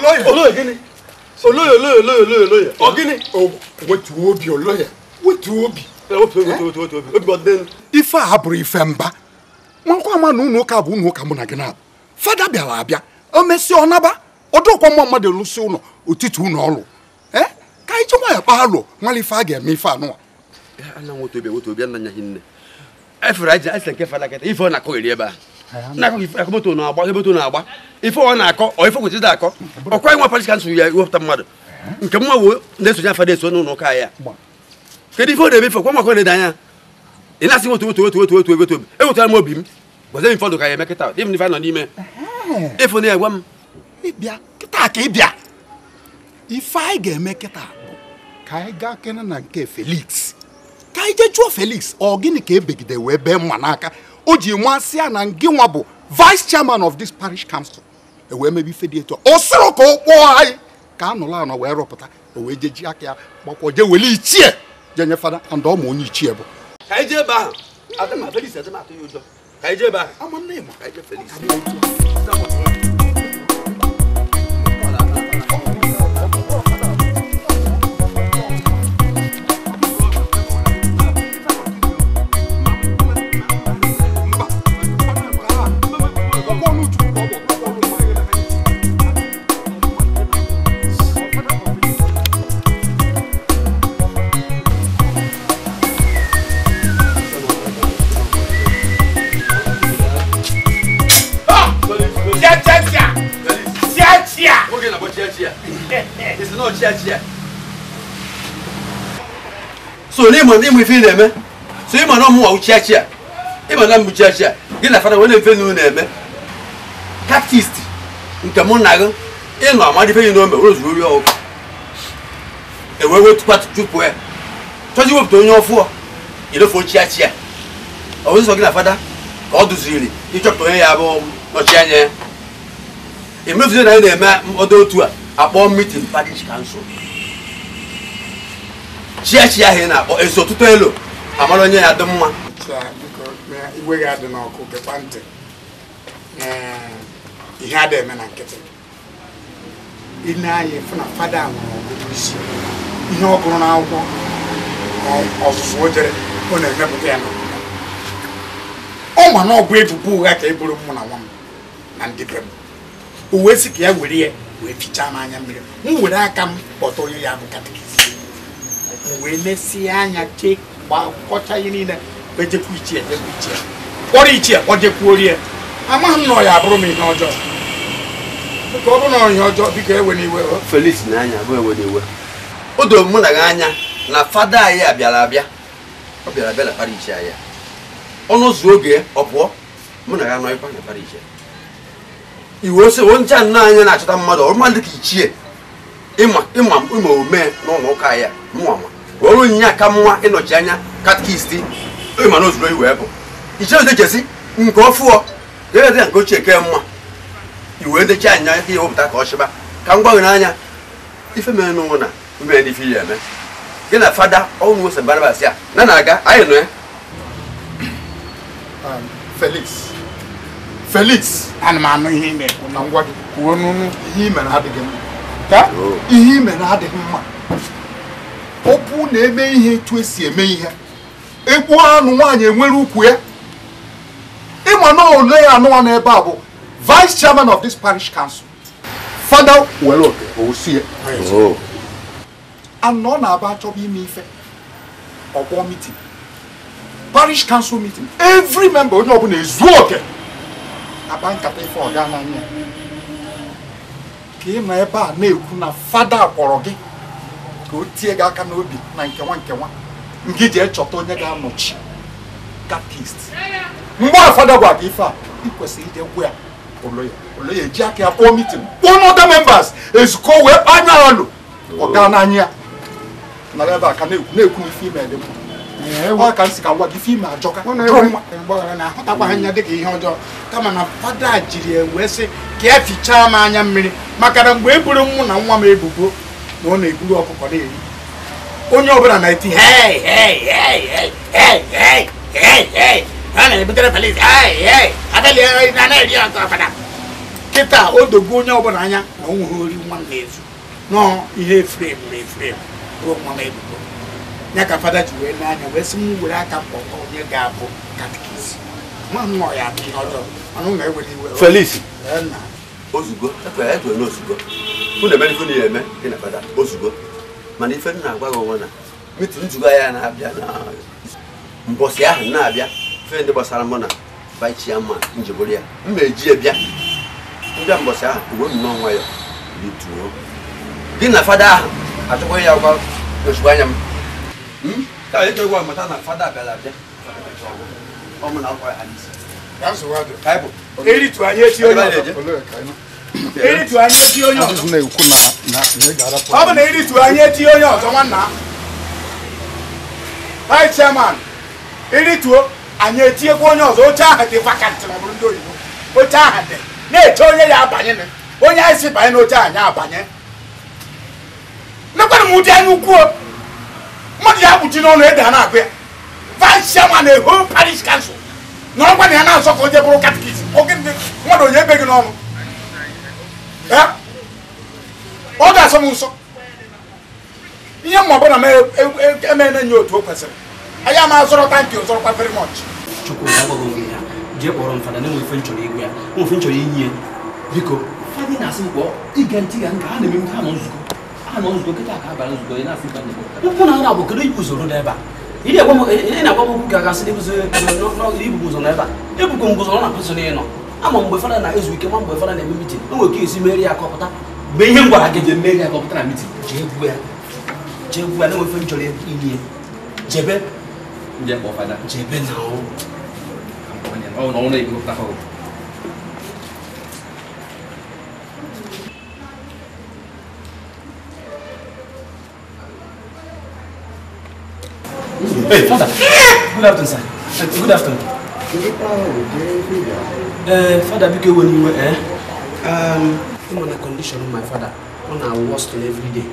gịnị ife a bụrụ ife mba nwakwa ama na ụnụ ụka bụ ụnụ ụka mụ na gị na fada bịara abịa o mesịa ọ naba ọdụkwa mma mmadụ lụsị ụlọ otutu ụnụ ọlụ ka anyị ji nwayọ alụ ife a ga-eme ife anụwa efere nke fada kịta ife ọ na ebe na-akọ moto agba agba ife ọ na-akọ ọ ife kwesịrị akọ ọkwa nwa parish kansụl ya iwepụta mmadụ nke mma wee na-esonye afa na-eso n'ụlọ ụka ya kedu ife ọ na-eme ife ọkwa maka na-ede anya ị na-asị otu otu otu otu otu obi ewetara m obi m gwazie m fọdụ ka ya emekịta ịm n'ife n'ime ịfụ na ya gwa m ịbịa kịta ka ife anyị ga-eme kịta ka anyị gaa na nke Felix ka anyị jee Felix ọ gịnị ka ebegide Oji Mwansia Nanginwabo, vice chairman of this parish council. E wee mebi fediator. Osoro ko why? Ka anụla anọ wee rọpụta. O wee jeji aka ya gbakwa je weli ichie. Je nye fada and ọ ma onye ichie bụ. Ka ije ebe ahụ. Adịma Felix adịma atụ ya ụjọ. Ka ije ebe ahụ. Ama nne ma ka ije Felix. ẹ̀sìn náà kíákíá. so ní ìmọ̀ ní ìmọ̀ ìfẹ́ nà-ẹ̀mẹ́ so ìmọ̀ náà mú wà ó kíákíá ìmọ̀ náà mú kíákíá gí nà fara wọn ní ìfẹ́ nínú nà-ẹ̀mẹ́ tactist nke mụ na gị ịnọ amadị ife we n'ome ụlọ zuru ori ọkụ ewe ewe tukwa chụpụ ya chọzi wepụta onye ọfụọ ilefe ochiachia ọ bụ sọ gị na fada ka ọ duziriri ịchọpụta onye ya bụ nọchi anya ya emefuzi na anyị na-eme do otu a akpọ mitin parish kansụl chiachi ahụ ị na-akpọ ezi ọtụtụ elu amara onye ya dị mma igwe gị adị n'ọkụ gekwa ntị ihe a eme na nkịtị ile anya fụ na fada nwere ọgụgụ isi ihe ọ gụrụ n'akwụkwọ e, ọzụzụ o jere ọ na-emepụta ya ọ ma na ọ bụ ebubo ụgha ka e buru mụ na nwa m na ndị be m o wee sị ka ya were ya wee fichaa m anya mmiri m were aka m kpọta onye ya bụ katikist m wee mesie anya chee kọcha ihe niile ejekwu ichie ejekwu ichie kpọrọ ichie ọ jekwuo rie amaghị m na ọ abụrụ m ihe ọjọọ ka ọ bụrụ na ihe ọjọọ biko ewe n'iwe Felix na-anya bụ ewe n'iwe o doro mụ na gị anya na fada anyị a bịara abịa ọ bịara abịa na parish anyị ọnụ ụzọ oge ọ pụọ mụ na gị anọghịkwa na parish iwe ose onye nna anya na-achọta mmadụ ọrụ mmadụ ka ichie ịma ịma omee n'ụlọ ụka ya ọrụ nyinye aka mma ịnọchi anya katkist ịma na ozuro iwe bụ ichie odechesi nke ọfụọ ga-ede nke ochie ke mma iwe ndechi anya ihe wepụta ka ọ chịba ka m gbanwere anya ife mere n'ụwa na ume ndị ife ya eme gị na fada ọnwụ ose barabas ya na na-aga anyị nụ ya um, felix Felix ana m anụ ihe ị na-ekwu na ngwa gị kwuo n'unu ihe imere adịghị mma ka ihe mma ọpụ na-eme ihe etu esi eme ihe ekwu anụ nwaanyị enwere ukwu ya ịma na ole ya anụwa n'ebe a bụ vice chairman of this parish council fada were oke osi ya and ọ na-aba achọba ime ife ọgbọ meeting parish council meeting every member onye ọbụla ezuo oke akpa nkata ife ọga n'anya ka ị nọ ebe a na-ekwu na fada kwọrọ gị ka o tie gị aka n'obi na nkewa nkewa nke ji echọta onye ga-anọchi katist mgbe a fada gwa gị ife a ị kwesịrị ije gwa ya oloya oloya eji aka ya kpọọ mitin kpọọ n'ọda membas ezukọ wee kpaa anya alụ ọga oh. n'anya ya nara ebe a ka na-ekwu na-ekwu ife ime dị mma ọ ka m ka na ha dịka ihe ọjọọ kama na fada jiri wee sị ka ya e fichaa anya mmiri maka na mgbe e buru mụ na nwa m ebubo na ọ na-eburu ọkụkọ na-eri onye ọbụla na-eti kịta o dogo onye ọbụla anya na o nwere ori nwa na-ezu nọọ ihe ruo nwa m ebubo ya ka fada ji wee n'anya wee sị m were aka mkpọkọ onye ga-abụ katikisi ma m ya na ewere iwe Felix ozugbo ekwere ekwere n'ozugbo mụ emere ife niile eme gị na fada ozugbo mana ife m na-agwa gị onwe na mitu nzukọ ya na-abịa na mbọsị ahụ na-abịa ife ndị gbasara mụ na baichia ma njebụrụ ya m eji ya bịa ndị mbọsị ahụ uwe ya bituo gị na fada ahụ ya ozugbo anya m Hmm? ka na fada na akwa onye ọzọ ọ bụ na eritu anya onye ọzọ nwanna vice chairman irituo anyị eti onye ọzọ oche ahụ dị vakantị ma bụrụ ndị oyibo oche ahụ na-eche onye ya abanye onye anyị si banye n'oche anyị abanye mekwana m ụdị anya ukwuo mo di abuji na ọna eda na abia vice chairman a parish council na ọgba na ya na asọfọ onye bụrụ katikiti oge ndị mmadụ onye ebe gị n'ọnụ ọ ga-asọ m nsọ ihe mma ọbụla m eme na-enye otu o kwesịrị anyị ama azọrọ tankị ọzọrọkwa very much chukwu agbaghị oge ya jee kpọrọ m fada na enwe ife nchọrọ igwe ya nwe ife nchọrọ inye biko fadị na-asị m ige ntị ya nke ha na-eme ha nọ nzukọ ana ozugbo kịta ka abalị ozugbo ị na-asị banye ụkwụ na nra bụ kedu ibu usoro n'ebe a ị na-agwa m okwu ka gasị ibubu ụzọ n'ebe a ebukwa m ụzọ na pụsụ na ịnọ ama mgbe fada na-ezu ike ma mgbe fada na-eme mitin o nwere ka esi meri ya kọpụta mgbe ihe m gwara gị jee meri ya kọpụta na mitin jee gbuo ya jee jebe jebe na enwefe m chọrọ inye jebe jebe na ọnwụ na-egopụta ee Good afternoon, sir. Good afternoon. Uh, father, biko when you were eh? Um, my father. On our worst every day.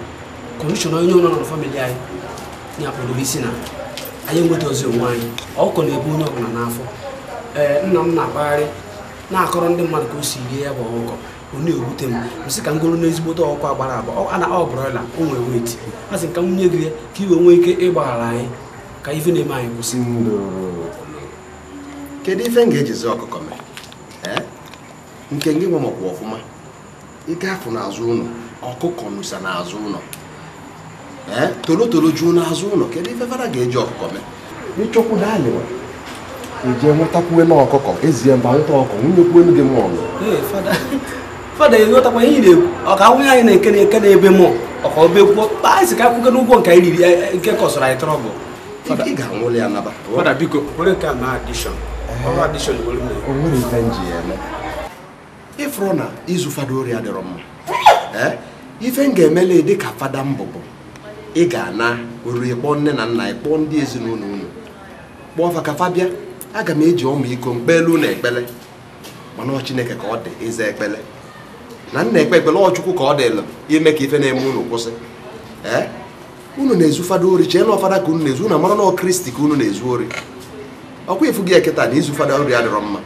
Condition onye nọ na family anyị na-apụrụ isi na anyị enweta ozi onwe anyị. Ọkụkọ na-ebu onye ọbụla n'afọ. Ee, nna m na-akpagharị na-akọrọ ndị mmadụ ka o si rie ya bụ ọkụkọ ọ na-ewute m msị ka m goro n'ezigbote ọkwa agbara agba ọ na ọ o nwere weti a ka m nye gị ya ka nwee ike ịgbaghara anyị ka ife na-eme anyị kwụsị kedu ife m ga-ejizi ọkụkọ mee nke gị nwe nke ọfụma ịgafụ n'azụ ụlọ ọkụkọ nusa n'azụ ụlọ ee toro toro juo n'azụ ụlọ kedu ife fara ga-eji ọkụkọ mee ịchọkwu na ọkụkọ ezie mba nwunye fada enwetakwa ihe nwunye anyị na-eke eke na ọka obekwuo isi ka akwụgo n'ụgwọ nke anyị riri e, e, nke kọsara i ga ya naba fada biko na ọrụ eme na izu fada ori dịrọ mma ife m ga-emele dị ka fada mbụ bụ ị ga-ana oriri kpọọ nne na nna ịkpọọ ndị ezinụlọ unu kpọọ fa ka aga m eji ọmụ iko mkpelu na ekpele mana ọ chineke ka ọ dị na nna ekpe ekpele ka ọ dịlụ ime ka ife na-eme unu kwụsị unu na-ezu ori e chee na ọfada ka unu na-ezu na amara na kristi ka unu na-ezu ori ọkwa ifu gị eketa na izu fada ori adịrọ mma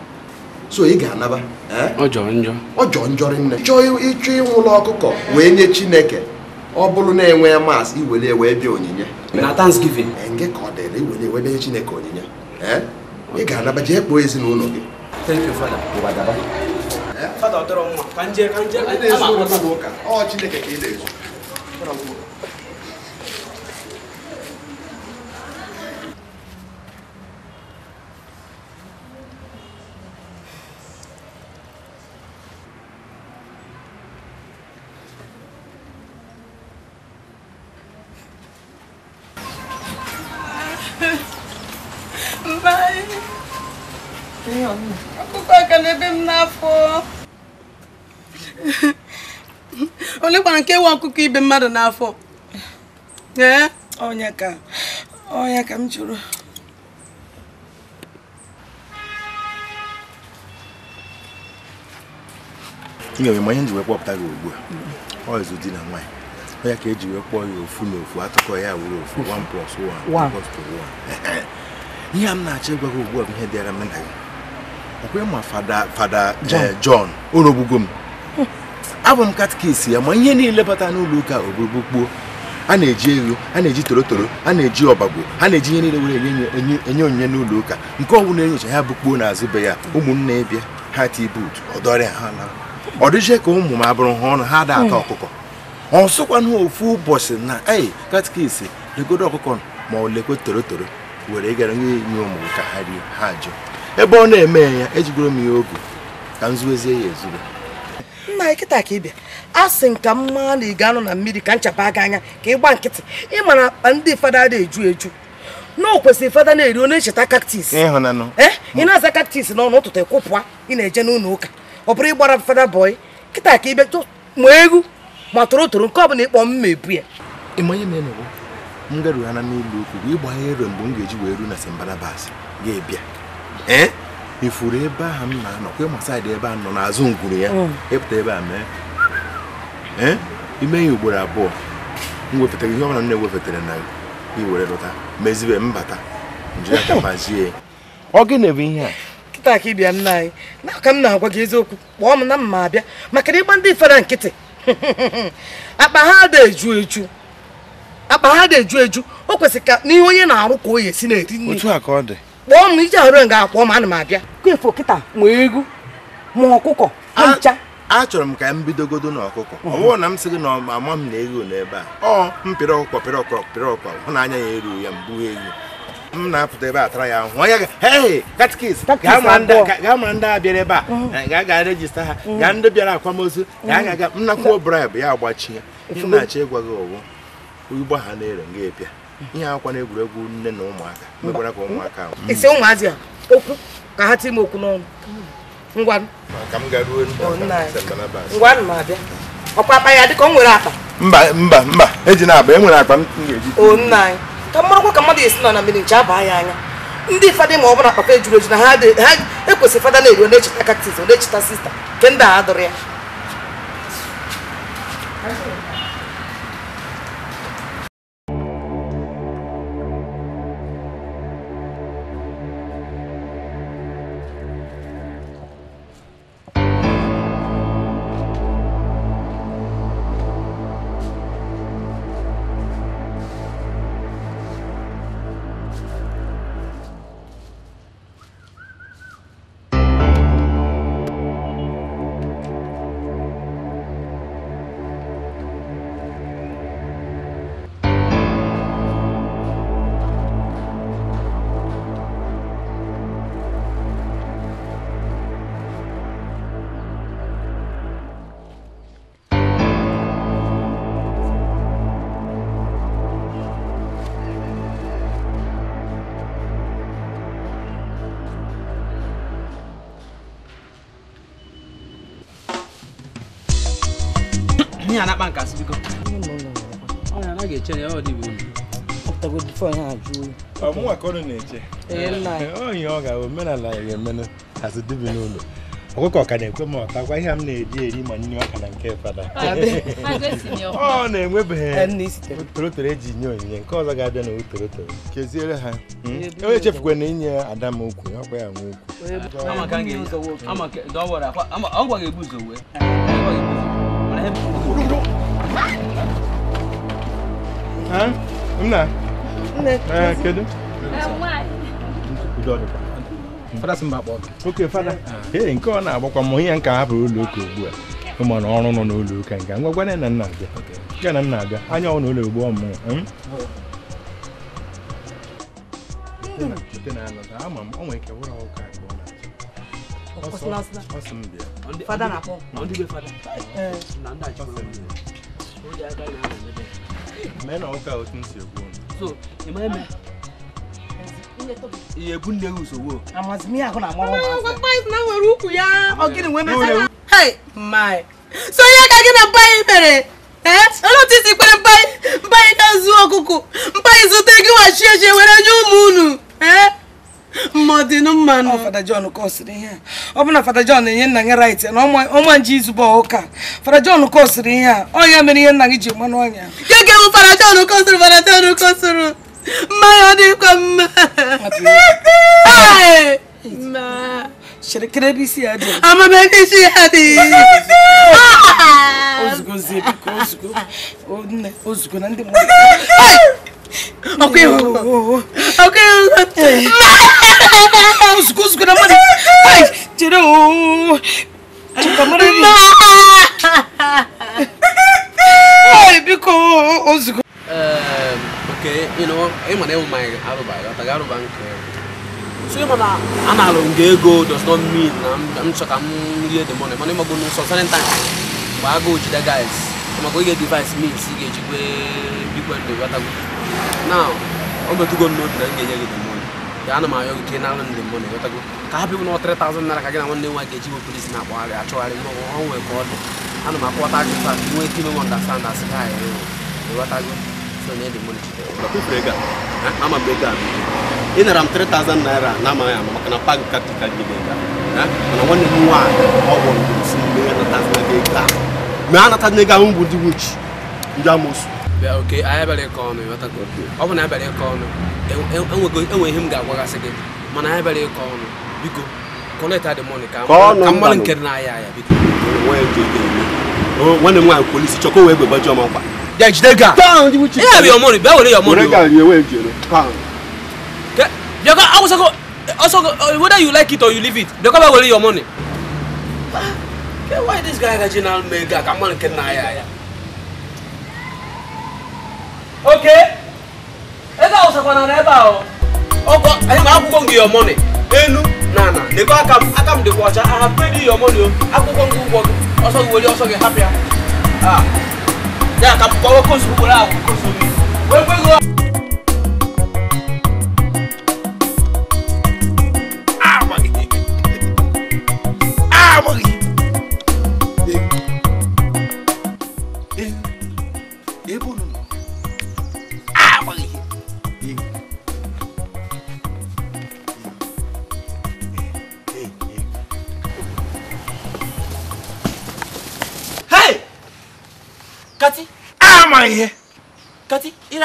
so ị ga-anaba ọjọọ njọ nne chọọ ịchọ ụlọ ọkụkọ wee nye chineke ọ bụrụ na-enwe maasị iwere ewe bịa onyinye na nke eh, ka ọ dịrị iwere bịa chineke onyinye ị eh? ga-anaba jee kpoo ezinụlọ gị eh? ọ chineke ka ị na chọrọ nke nwe ọkụkọ ibe mmadụ n'afọ ee ọnya ka ọnya ka m jụrụ ị ga-enwe manye ji wee kpọpụta gị ugbu a ọ ịzụ di na nwaanyị onye ka eji wee kpọọ ya ofu na ofu atụkọ ya wuru ofu 1 plus 1 plus 1 ihe m na-achọ ịgwa gị ugbu a bụ ihe dịara m nna gị ọkwenye ma fada fada John eh, o m abụ m katikis ya ma ihe niile bata n'ụlọ ụka kpuo a na-eji ego a na-eji torotoro a na-eji ọbagbo a na-eji ihe niile were enye onyinye n'ụlọ ụka nke ọbụla na-enyocha ya bụ kpuo n'azụ be ya ụmụnne e bịa ha tibut ọdọrịa ha na ọ dịje ka ụmụ m abụrụ ha ọnụ ha ada ata hmm. ọkụkọ ọ sụkwanụ ofu ụbọchị na ei katikis legodo ọkụkọ ma ọ lekwe torotoro were gara nye enye ụmụ ka ha rie ha ebe ọ na-eme ya ejigoro m ya oge ka m zuwezie ya ezuru nna anyị kịta ka ị bịa a sị nka m maa na ị ga anụ na mmiri ka nchaba aga anya ka ị gba nkịtị ịma na akpa ndị fada dị eju eju na o kwesịrị fada na-eri ọ na-echeta kaktis eh? ị na-aza kaktis n'ọnụ ụtụtụ kwụpụa ị na-eje n'ụlọ ụka ọ bụrụ ịgbara fada bọị kịta ka ị bịa ma egwu ma toro toro nke ọ bụla ịkpọ m ebu ya ịmanye na enugwu m garughana n'ụlọ ukwu wee gbaa ero mgbe m ga-eji wee ruo na simbalabas ga-ebịa eh? ifuru ebe ahụ m na-anọ kwe ma saịdị ebe a nọ n'azụ ngwuru ya ịpụta hmm. e ebe a mee ime ya ugboro abụọ m wepụtara ihe ọbụla m na ewepụtara na iwere lụta mezibe mbata njiri aka mazie ọ gị na-ebe ihe a kịta ka ịbịa nna anyị n'aka m na-agwa gị eziokwu kpọọ m na mma abịa maka na ịgba ndị fere nkịtị akpa ha da-eju eju akpa ha da-eju eju o kwesịrị ka n'ihe onye na-arụ ka o ya esi na-eri nri otu a ka ọ dị kpọọ m ije ọrụ nga akpọọ m ana m abịa kwefụ kịta ma egwu ma ọkụkọ ma ncha chọrọ m ka m bidogodo n'ọkụkọ ọ bụrụ na m sị gị na ama m na egwu n'ebe a ọ m pịrị ọkụkọ pịrị ọkụkọ pịrị ọkụkọ hụ na anya ya erughị ya mbụ egwu m na-apụta ebe a tara ya ahụ onye katikis gaa ma ndị a bịara ebe a mm. ga-aga rejista ha mm. gaa ndị bịara akwamozu mm. ga-aga nnakwuo bribụ ya agbachie ihe na-achọ ịgwa gị ọwụ ụgbọ ha na-ere nga epịa ihe akwa na egwuregwu nne na ụmụaka mekwara ka ụmụaka ahụ. Mm. ise ụmụazị a okwu ka ha tie m okwu n'ọnụ mm. ngwanụ oh, ọkwa akpa ya dịka o nwere akpa mba mba mba eji na akpa enwere akpa m ga-eji oh, ka mmarakwa ka mmadụ esi nọ na mmiri nche abaa ya anya ndị fada ma ọ bụla papa ejuru eju na ha ekwesịrị fada na-eru na-echeta kaktis ọ na-echeta sista nke ndị a dụrụ ya a na-akpa nkasị biko ọmụnwa na-eche oyi ọ ga-ahụ omenala ya ga-emenụ hazi dibi ọkụkọ ka na-ekwe m ọtakwa ihe m na-eri eri ma nne ọka na nke fada ọ na-enwebeghị torotoro eji nye onyinye nke ọzọ ga-abịa na torotoro keziere ha hmm? onye na inye ada m okwu ọkwa ya nwe okwu hả đúng nè à, kia đúng fada simba kpọ oke fada con nke ọ na-agbakwa m onye nke a bụ ụlọ ụka ugbu a ụmụna ọrụ nọ n'ụlọ ụka nke ngwa gwana na nna abịa nke na nna abịa anya ọ n'ụlọ ugbu ọmụ ama m ọ nwere ike wụrụ ụka nke ọ na-achọ ọsọ m bịa fada na-akpọ ndị be fada na ndị achọ mena ọ ka otu nsi ekwu so ịma eme ihe ebu nne gị usogbo amazimi ahụ na amara ụmụazị paịs na nwere ukwu ya ọ gịnị nwee mesara hei mai so ihe ka gị na mbaanyị mere olóòtú ti pé mbaanyị mbaanyị ka zuo ọkụkụ mbaanyị zụta gị wachie ji were nye ụmụ unu ee mmadụ ịnụ mmanụ fada John kọsịrị ihe a ọ bụ na fada na-enye nna gị rait na ọnwa nje izugbo ụka fada John kọsịrị ihe a ọnya mere ihe nna gị ji mmanụ ọnya gege bụ fada John kọsịrị fada John kọsịrị mmanya ọ dịkwa mma Şirkine bir siyadı. Ama ben de siyadı. Ozgo zebik, ozgo. O ne? Ozgo nan de mori. Ay! ok, ok, okay. Ozgo, ozgo nan mori. Ay! Tere o. Çıka mori. ok, biko ozgo. Ehm, okay, you know, emanew my aruba, tagaruba nke. Eh. so ma na anara m ego does not mean na m chọ ka m the money mana ịmago n'ụsọ certain time mgbe agụụ jide guys maka oge device means ị ga-ejikwe bikwe ndụ ghọtago now o na m ga-enye gị money ga ana m ayọ gị ka ị nara ndị mmụọ na ka 3000 na nwanne nwa ga-eji bụ polisi na dị ana m akpọta gị taa nwee ike ime m ọndastand asị ị nara m 3000 na-amaghị ama maka na pak taktikal mana nwanne m nwaanyị a nata ego ahụ na e, e, e ihe ga-agwagasị gị mana anyị ọnụ dị mọnị ka mmanụ dị ya biko nwanne m nwaanyị polisi chọkọ wee Jejidega. Pound which is. Yeah, be your money. Be where your money. Jejidega ni ewe jere. Pound. Ke, you go also go also go, whether you like it or you leave it. They come where your money. Ke, why this guy got general mega? Come on, can na ya ya. Okay. Ega also go na reba o. Ogo, I ma akwụkwọ gị your money. Enu na na. Dekwa aka m, aka m dịkwa ọcha. I have paid you your money o. Akwụkwọ gị ụgwọ gị. Ọsọ gị were ọsọ gị hapụ ya. Ah. Ya, kapitawa consumo su kura ko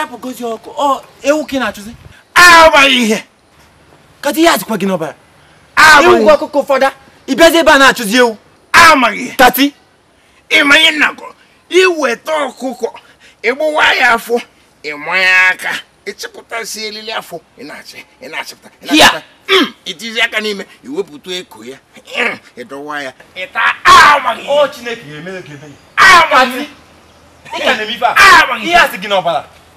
apụgozi ọkụ ewu ka ị na-achụzi amaghị ihe kata ihe azikwa gị n'ọbara ewu gwa ọkụkọ ụfọdụ ịbịazi ebe a na-achụzi ewu amaghị ihe tati ịmanye nnakọ iweta ọkụkọ ịgbawa ya afọ ịmanya aka ịchịpụtasị elili afọ ị achịpụta ị itizi mm. aka n'ime iwepụta eko ya mm. ịdọwa ya ịta amaghị Chineke ga-eme ga-eme ya amaghị ihe a sị gị n'ọbara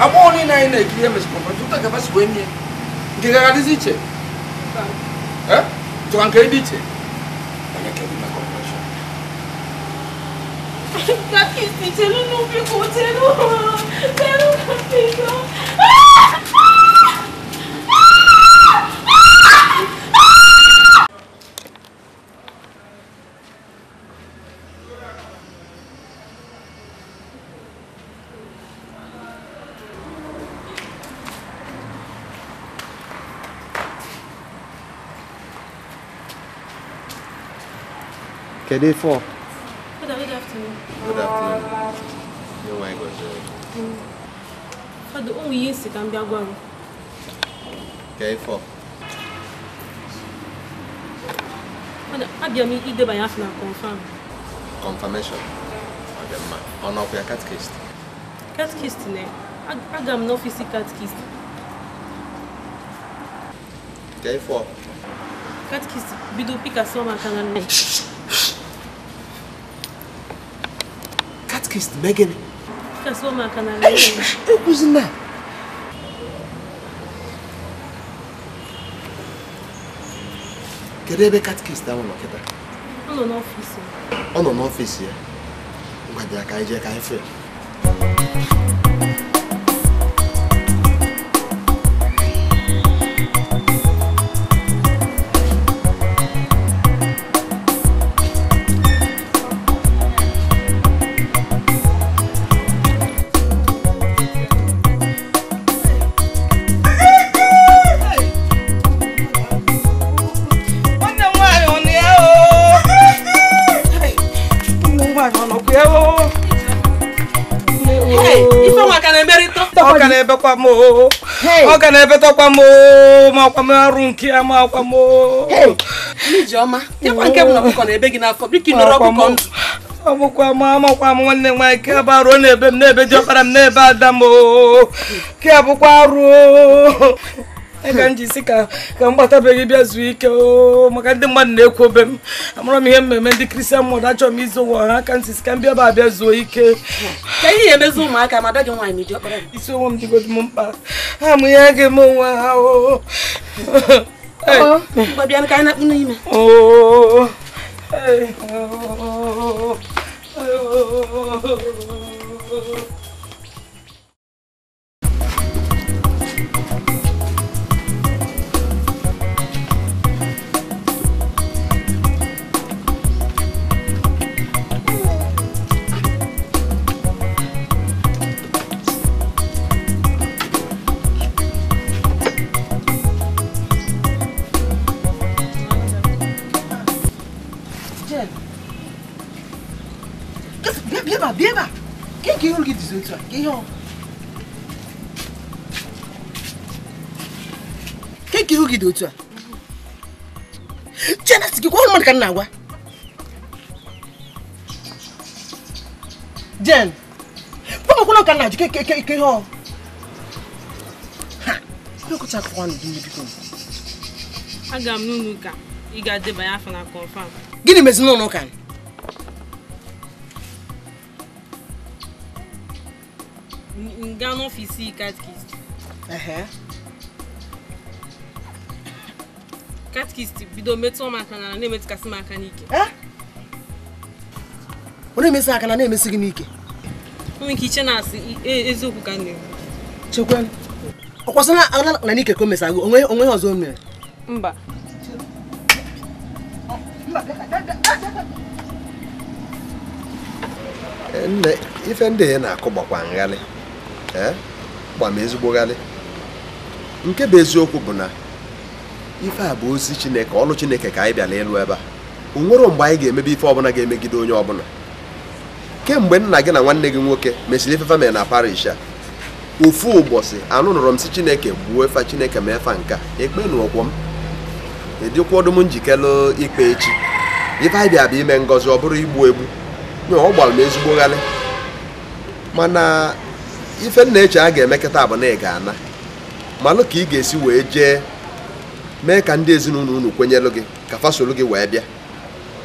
amoni naine ikiya mesikomba ndikuta ngavasikwenye ndikakalisi che tikangeidi che Kakisi, celu nubi ku, celu. Celu nubi ku. Aaaaah! Aaaaah! Today four. Good, good afternoon. Good afternoon. Your language. Mm. For the only yes, it can be a one. Okay, four. Abia mi ide by half na confirm. Confirmation. On up your un Catechist ne. Aga m n'ofisi catechist. Okay, four. Catechist bido pika soma kanga ne. kissed Megan. Kaso makanalin. Eh, kuzin na. Kedu ebe katikist ahụ nọ kịta? Ọ nọ n'ọfiisi. Ọ nọ n'ọfiisi ya? Ngwa bịa ka anyị o que é fee. ebe kwa m ọ ga na ebe tọkwa m ma ọkwa m arụ nke ya ma ọkwa m Ijeọma, dịkwa nke bụ na ọkụkọ na ebe gị n'afọ biko ịnọrọ ọkụkọ ndụ ọbụkwa m amakwa m nwanne m nwaanyị ke ba ruo n'ebe m n'ebe ji ọkpara m n'ebe ada m ke abụkwa ka m ji si ka ka be gbatabeghị bịa zuo ike maka ndị mmadụ na-ekwu obe m amara m ihe mmemme ndị kristian mmadụ achọrọ m izu ụwa ha ka m ka m bịa ba abịa zuo ike ka ihe emezi ụmụaka ma dọghị gị nwaanyị meji m m mụ bịa ebe a bịa ebe a ka ike ịhụrụ gị dizi otu a ka ihe ọ ka ike ịhụ gị dị otu a chena si gị gwa mmadụ ka m na-agwa jen kpọmakwana ka m na-ajụ ke ihe ọ ha ekwecha akụkwanụ gị biko aga m n'ụlọ ụka ị ga-adebanye afọ na kọnfam gịnị mezi n'ụlọ ụka nga n'ọfịs katkist katkist bido metụ m aka na na-emetụkasị m aka n'ike ọ na-emesi aka na na-emesi gị n'ike onwe ike iche na-asị eziokwu ka na-ekwu chekwe ọ kwasịna na n'ike ka o mesago onwe ọzọ o mere mba nne ife ndị na-akụ gbakwa nghalị Eh? gba ezigbogharị nke bụ eziokwu bụ na ife a bụ ozi chineke ọlụ chineke ka anyị bịara ịlụ ebe a o nwere mgbe anyị ga-emebe ife ọbụla ga-emegide onye ọbụla kemgbe nna gị na nwanne gị nwoke mesịrị ife famil na parish a ofu ụbọchị anụ nụrụ m si chineke gbuo efe chineke ma efa nka ekpe n'ụkwụ m edịkwa ọdụm njikere ikpe echi ife anyị bịa ime ngọzi ọ bụrụ igbu egbu ọ gbara m ezigbo ghalị mana ife nna eche a ga-emekọta abụ na ị ga-ana malụ ka ị ga-esi wee jee mee ka ndị ezinụlọ unu kwenyelụ gị ka fasolu gị wee bịa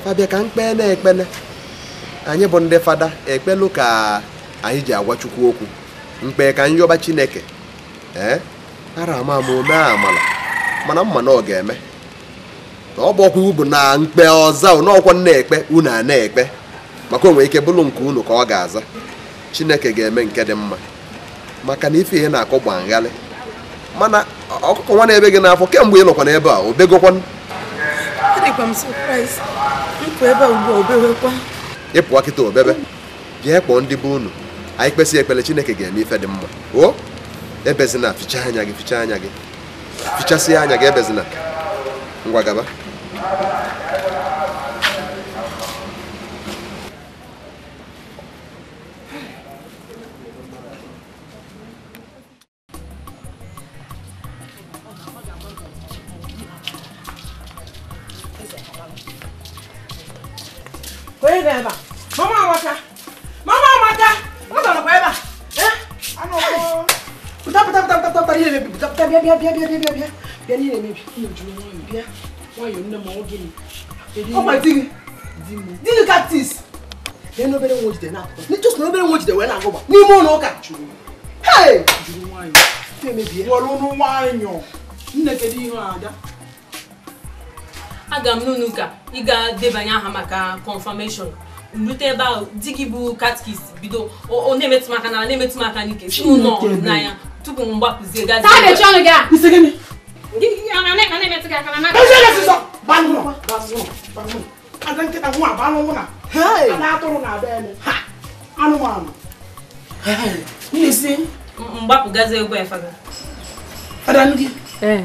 fabịa ka mkpee na-ekpele anyị bụ ndị fada ekpelụ ka anyị ji agwa chukwu okwu mkpee ka nyọba chineke ee ara ama ama ome amala mana mma na ọ ga-eme na ọ bụ ọkwụ na mkpe ọza n'ọkwa na-ekpe unu a na-ekpe maka onwe ike bụrụ nke unu ka ọ ga-aza chineke ga-eme nke dị mma maka na ife ihe na-akọ gba nghalị mana ọkụkọ nwa na-ebe gị n'afọ kemgbe ị nọkwa n'ebe a obegokwan ịpụwa kịta obebe bịa kpọọ ndị be unu anyị kpesị ekpere chineke ga-eme ife dị mma o ebezina fichaa anya gị fichaa anya gị fichasịa anya gị ebezina ngwa gaba koye na ebe a mama amaka mama amaka ọ nọrọkwa ebe a pụta pụta pụta pụta pụta ihe mebi pụta pụta bịa bịa bịa bịa bịa bịa bịa n'ihe mebi nne m jụrụ nwayọ bịa nwayọ nne m ọ gịnị ọ gwa di gị di gị kaktis bịa n'obere nwa ojide na-akụkọ n'ịchọs na obere nwa ojide wee na-agụba n'ime ụlọ ụka jụrụ hei jụrụ nwayọ na-emebi ya nwere ụlọ nwayọ nne kedu ihe ada aga m n'ụnụ ka ị ga-debanye aha maka confirmation rute ebe ahụ di gị bụ katkis bido ọ na-emetụ maka na na-emetụ m n'ike ụlọ tupu m gbapụzie gazi mgbapụgazi ya fada. fada ndị? ee.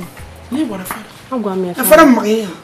Agwa m ya fada. Fada m maka ihe a.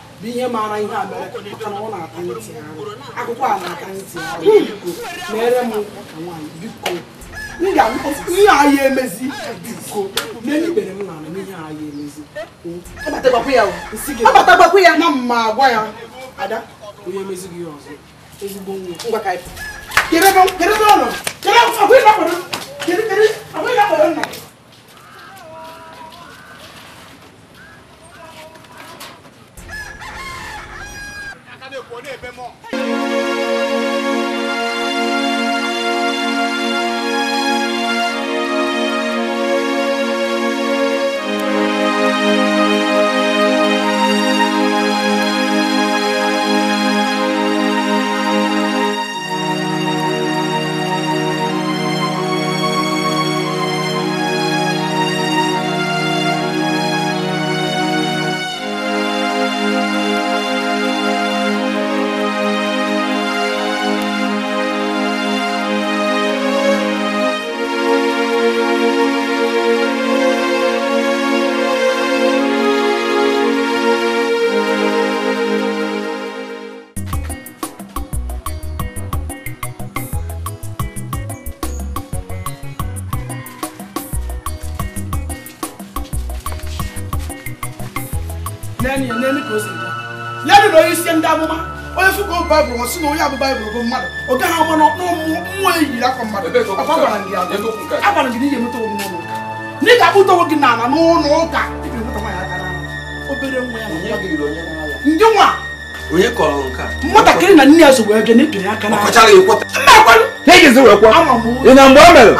bụ ihe maara ihe a mere maka na ọ na-ata ntị arụ akụkọ a na-ata ntị arụ biko hmm. mere m nwaanyị biko m ga-alụkọsị ihe anyị emezi biko n'elu ikpere m na-anụ ihe anyị emezi agbatagbakwu ya na mma agwa ya ada onye emezi gị ọzọ ezigbo nwa ngwa ka kedebe ọnọdụ kedebe ọnọdụ kedebe ọnọdụ kedebe ọnọdụ 国内外贸。wɔsi na ɔyɛ abobaa ebolobo mmadụ ɔga ha ɔmɔ na ɔmụ mmụọ eyiri akɔ mmadụ papa gbara ndị adọ agbara ndị n'ihe mụta omume ụlọ ne ga akpụta onwe gị n'ala n'ụlọ ụka ebe mụta nwaanyị aka n'ala obere nwa ya ndị nwa onye kọrọ nke nwatakịrị na nne ya so wee bịa na-etunye aka n'ala ọkọchara ekweta mma ekwenụ na ejezi wee kwa ị na mgbe o mere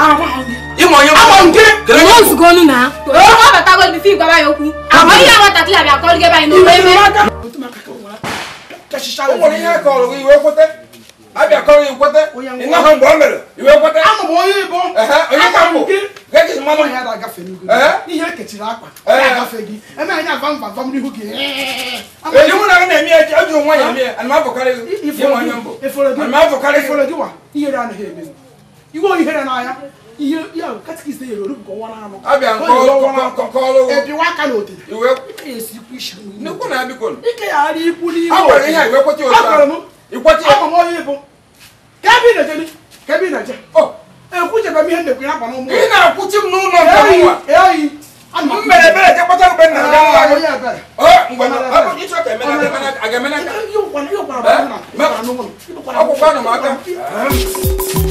ịma onye ama nke nzukọ ọnụ na eh? ọ batago bifi gwaba ya okwu amaghị ya nwatakịrị abịa kọrịgebe anyị n'obe ebe echicha o nwere ihe a kọrọ gị iwe kwete abịa kọrọ gị kwete ịnahụ mgbe o mere iwe kwete ama m onye ibo onye ka mbụ gị mmanụ e ya agafe ihe ekechiri gị eme anyị agba mba n'ihu gị mụ na na-eme ihe ya katikist ya olu nke ọwara anụ ebiwa na otete na m na n'ụlọ eyi mbere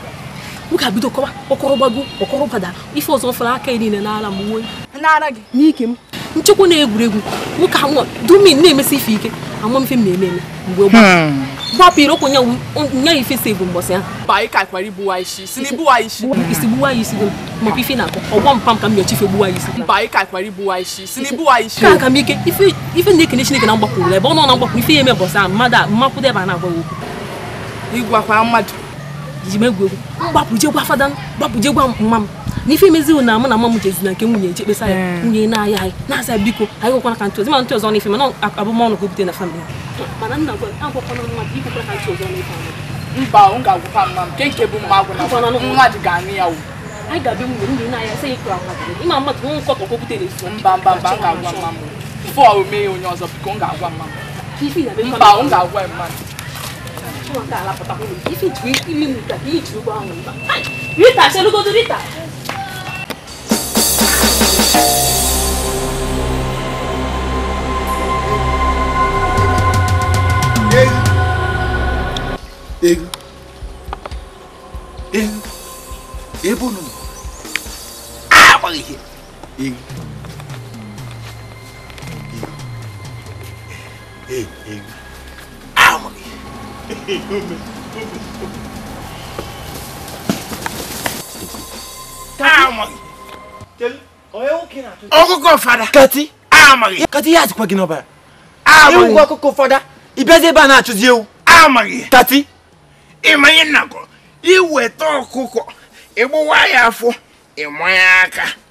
m ga-abido kọwa ọkọrọ gbago gbada ife ọzọ fọrọ aka niile n'ala m nwee n'ara gị n'ike m nchekwa na-egwuregwu nwoke anwụ dumin na-emesi ife ike ama mfe hmm. e m na-eme eme mgbe gbapụrụ okwu nya ife si bụ mbọsị ahụ gbuwa ya isi maka ife na-akọ ọgwọ mpa ka m ife gbuwa e m ike ife na-ekene Chineke na ebe ọ nọ na mgbapụrụ ife ya eme mbọsị ahụ mmadụ a na-agwa okwu ji m egwu egwu mgbapụjegwa fada gbapụjegwa mma m na ife na mụ na mma m jezi na nke nwunye eche ya hmm. nwunye na-aya anyị na biko anyị ka ma ntụ ọzọ n'ife mana abụmọnụ ka na famịlị mana nna agwakwana ka ọ ga-agwụkwa mma nke nke ya na-aya sị ịma mmadụ nkọtọ ka na mba mba mba ga-agwa mma m fọ omee onye ọzọ biko m ga-agwa mma mba m ga-agwa Chinwata alapụtakwa ife ji imi m ka ị ji ụgbọ ahụ mba Rita chelugodo Rita ego ego ebe unu ọkụkọ fada kati amaghị kati ya atịkwa gị n'ọbara ewu ọkụkọ fada ịbịazi ebe a na-achụzi ewu amaghị kati ịmanye nnakọ iweta ọkụkọ ịgbawa ya afọ ịmanye aka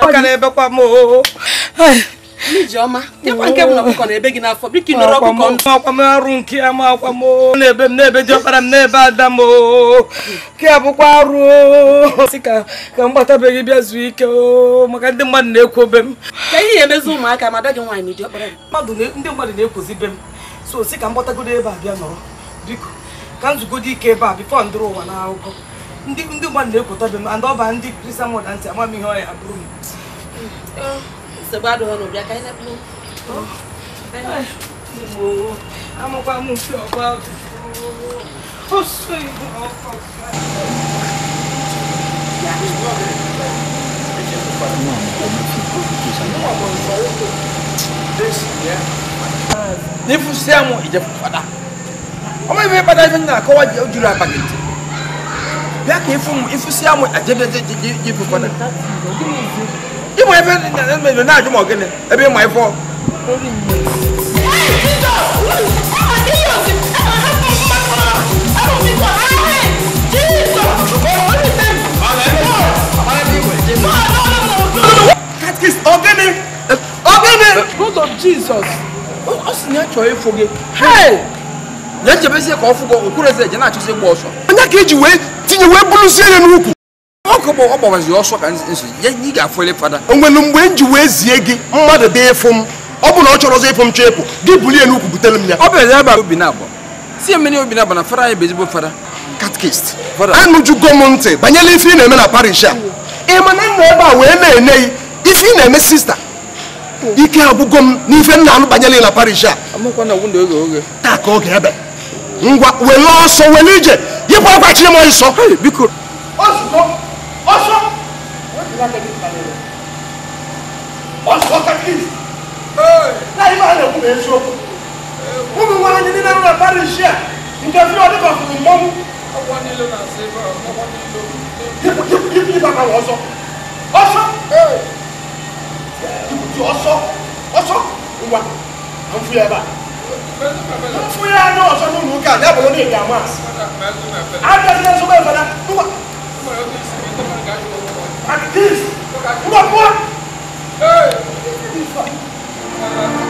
ọ ga na ebekwa m oo Ijeọma, nke m na ọkụkọ na ebe gị n'afọ ama akwamo n'ebe m n'ebe ọkpara m n'ebe ada m ke abụkwa si ka ka m bịa zuo ike maka ndị mmadụ na-ekwu obe m ndị mmadụ na be m so si ka m gbatagodo ebe a nọrọ biko ka ike ebe a ndịrị ụwa na akụkọ sɛgbadɔ hɔ no obi aka ɛnɛ plo amɔkɔ amɔfi ɔba ɔsɔ ibu ɔkɔ nifu sɛmu ìjẹfu fada ọmọ ìfẹ padà ìfẹ nyina kọwa ojúlọ abakẹtì bí a kì í fún mu ìfú sẹmu àjẹbẹjẹ jẹjẹ jẹfu fada. You ìmọ̀ ẹ̀fẹ́ ẹ̀mẹ̀jọ náà do kí ni ẹbí ìmọ̀ ẹ̀fọ́. ọgẹni ọgẹni. blood of jesus ọ sì ní àjọ efoge. yẹn jẹ bẹ sẹ kọ fún bọ òkú rẹ sẹ jẹ náà àtúnṣe gbọ ọsàn. ọ̀nyá kejì wẹ́ẹ́ tinye wẹ́ẹ́ bulu sí ẹ̀yẹ nínú kù. bụ ọgbawazi ọsọ ka ị ga-afụle fada onwelu mgbe m ji wee zie gị mmadụ dị ịfụ m ọ bụ na ọ chọrọ ọzọ ịfụ m chọ ịpụ gị bulie n'ukwu butere m ya ọ bịara ebe obi na-abụ si mmiri obi na-abụ na fara anyị bụ ezigbo fada katkist anụjugo m ntị banyere ife ị na-eme na parish a ị ma na nna ebe a wee na-ene ife ị na-eme sista ike abụgo m n'ife m na-anụ banyere na parish a taa ka oge ebe ngwa were ọsọ were ije yipụ akwa chiri m ọsọ biko látẹ̀kì kalẹ̀ rẹ̀ ó sọ tẹ́kì láyé máa lè kún èso kún mi wá ní nínú rẹ̀ bárí iṣẹ́ ǹjẹ́ fi ọdún kan fún mọ́mú. ọwọ́ nílò náà ṣe bá ọwọ́ nílò. yíkú yíkú yíkú yíkú bàbá wọ́n sọ ọsọ yíkú tí ọsọ ọsọ wa à ń fúyà bá fúyà náà ọsọ ní òun ká ní àbọ̀lọ́ ní ìdààmú àti. àdàtí At this, look at what? Hey!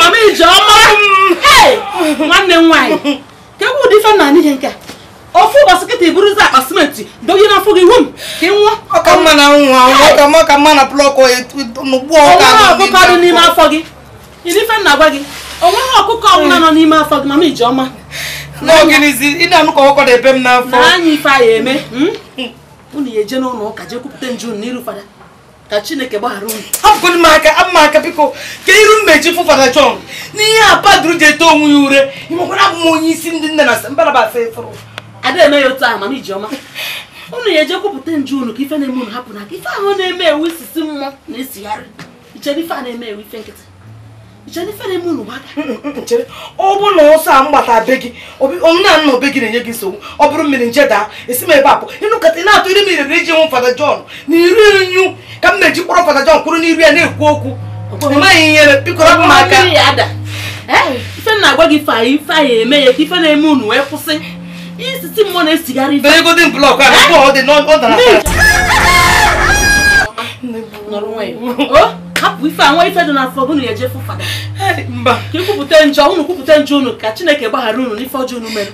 mama ijeọma nwanne m e ife na nke a ofu ụbọchị kịta iburuzi n'afọ gị wom ka nwa ọka mma na mma na ọkụkọ dị n'ime afọ n'ime afọ gị mama ijeọma ị na ka ebe m n'afọ na anya ife a ya eme hmm? unu ya eje n'ụlọ ụka jee kwupụta nju n'iru fada ka chineke gbaghara unu hapụkwala m aka ama aka biko ka iru mmechi fụ fada chọn n'ihe a padụrụ ji eto onwe ya ure ịmakwara abụ onye isi ndị nne na mbalaba asa ịfụrụ ada eme ya otu a mana ijeọma unu ya eje kwupụta nju unu ka ife na-eme unu hapụ na aka ife ahụ na-eme ewu isisi mmụọ na-esigharị ichere ife a na-eme ewu ife nkịtị jenifere m unu mm, mm, mm, chere ọ bụrụ na ọsọ a m be gị na nna obe gị na-enye gị nsogbu ọ bụrụ mmiri nje daa esi m ebe a pụ ịnụkọta ị na-atụ iri mmiri iji nwụ fada jọn na iri nyu ka m na-eji kpọrọ fada jọn kwuru n'iru ya na-ekwu okwu ịmaghị ihe bikọrọ m aka ife na-agwa gị ife ife anyị eme ya ife na-eme unu wee kwụsị isisi mmụọ na-esigharị ife egodin blọk a ọ dị ọ dara hapụ ife a nwa ife dị n'afọ unu ya ejefu fada ka ikwupụta njọ unu kwupụta njọ unu ka chineke gbaghara ụnụ n'ife ọjọọ unu mere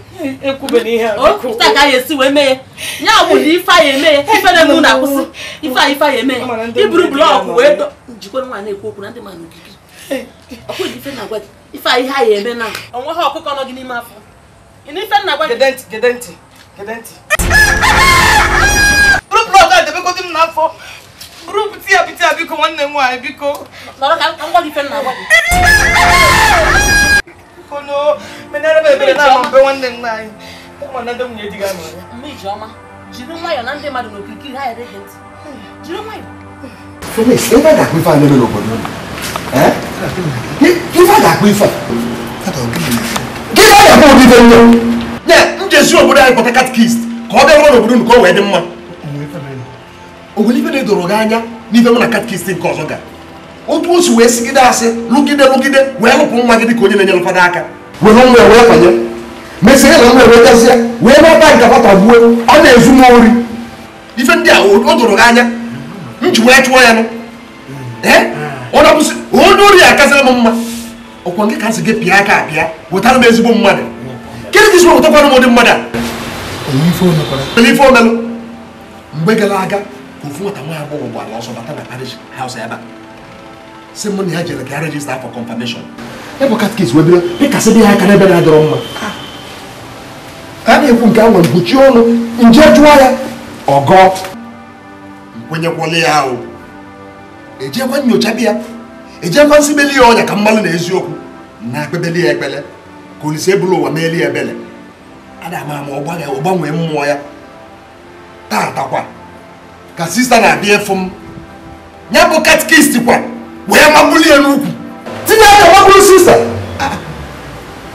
okwupụta ka anyị esi wee mee ya ya bụ na ife anyị eme ya ife na emu na-akwụsị ife a ife anyị eme ya iburu blọọkụ wee dọ jikwa nwa na-ekwu okwu na ndị mmadụ ogige ọkwụghị ife na-agwa ife a ihe anyị eme na onwe ha ọkụkọ nọ gị n'ime afọ ife na-agwa gị gede ntị gede ntị bụrụ blọọkụ a debekọdị buru buti ya buti ya biko nwanne m nwaanyị biko nọrọ ka ngwa gị fe nna agwa gị kono menere m ebere na-ama mbe nwanne nna anyị ma na ndị nwunye di gị anọ ya mma iji ọma jiri nwayọ na ndị mmadụ n'okirikiri ha ere gị ntị jiri nwayọ Femis, ebe a ga-akpụ ife a n'ebe n'obodo ife a ga-akpụ ife a gị na-ayakwa obibe nne nye njezi obodo anyị kpọta katikist ka ọ bịa rụọ n'obodo unu ka o wee dị mma o nwere ife na-edoro gị anya n'ife m na katkist nke ọzọ ga otu o si wee sigide asị lụgide lụgide wee lụpụ nwa gị ka onye na-enyere fada aka were nwa wee fanye mesie na nwa ewetazịa wee nata nka fata gbuo ọ na-ezu m ori ife ndị a o doro gị anya m ji wee chụọ ya nụ onye ori a m mma ọkwa nke ka gị pịa aka apịa wetara m ezigbo mmadụ ka isi wetakwana m ụdị mmadụ a omelụ mgbe gara aga ofu nwata nwa agbọghọ gbara ọsọ bata na parish house ebe a si mụ na ya jere ka rejista afọ confirmation ebe katkis wee bido ịkasị dị ha aka n'ebe na-adọrọ mma a na-ekwu nke a nwere mkpuchi ọnụ nje jụọ ya ọgọ nkwenyekwala ya ahụ ejekwa nyocha bịa ejekwa nsibeli ya ọnya ka mmalụ na eziokwu na akpebeli ya ekpele ka olise ebulu ụwa meeli ya ebele a na-ama ama ọ gbanwee mmụọ ya tatakwa ka sista na-abịa efu m ya bụ katikist kwa wee mabuli ya n'ukwu tinye aka magburu sista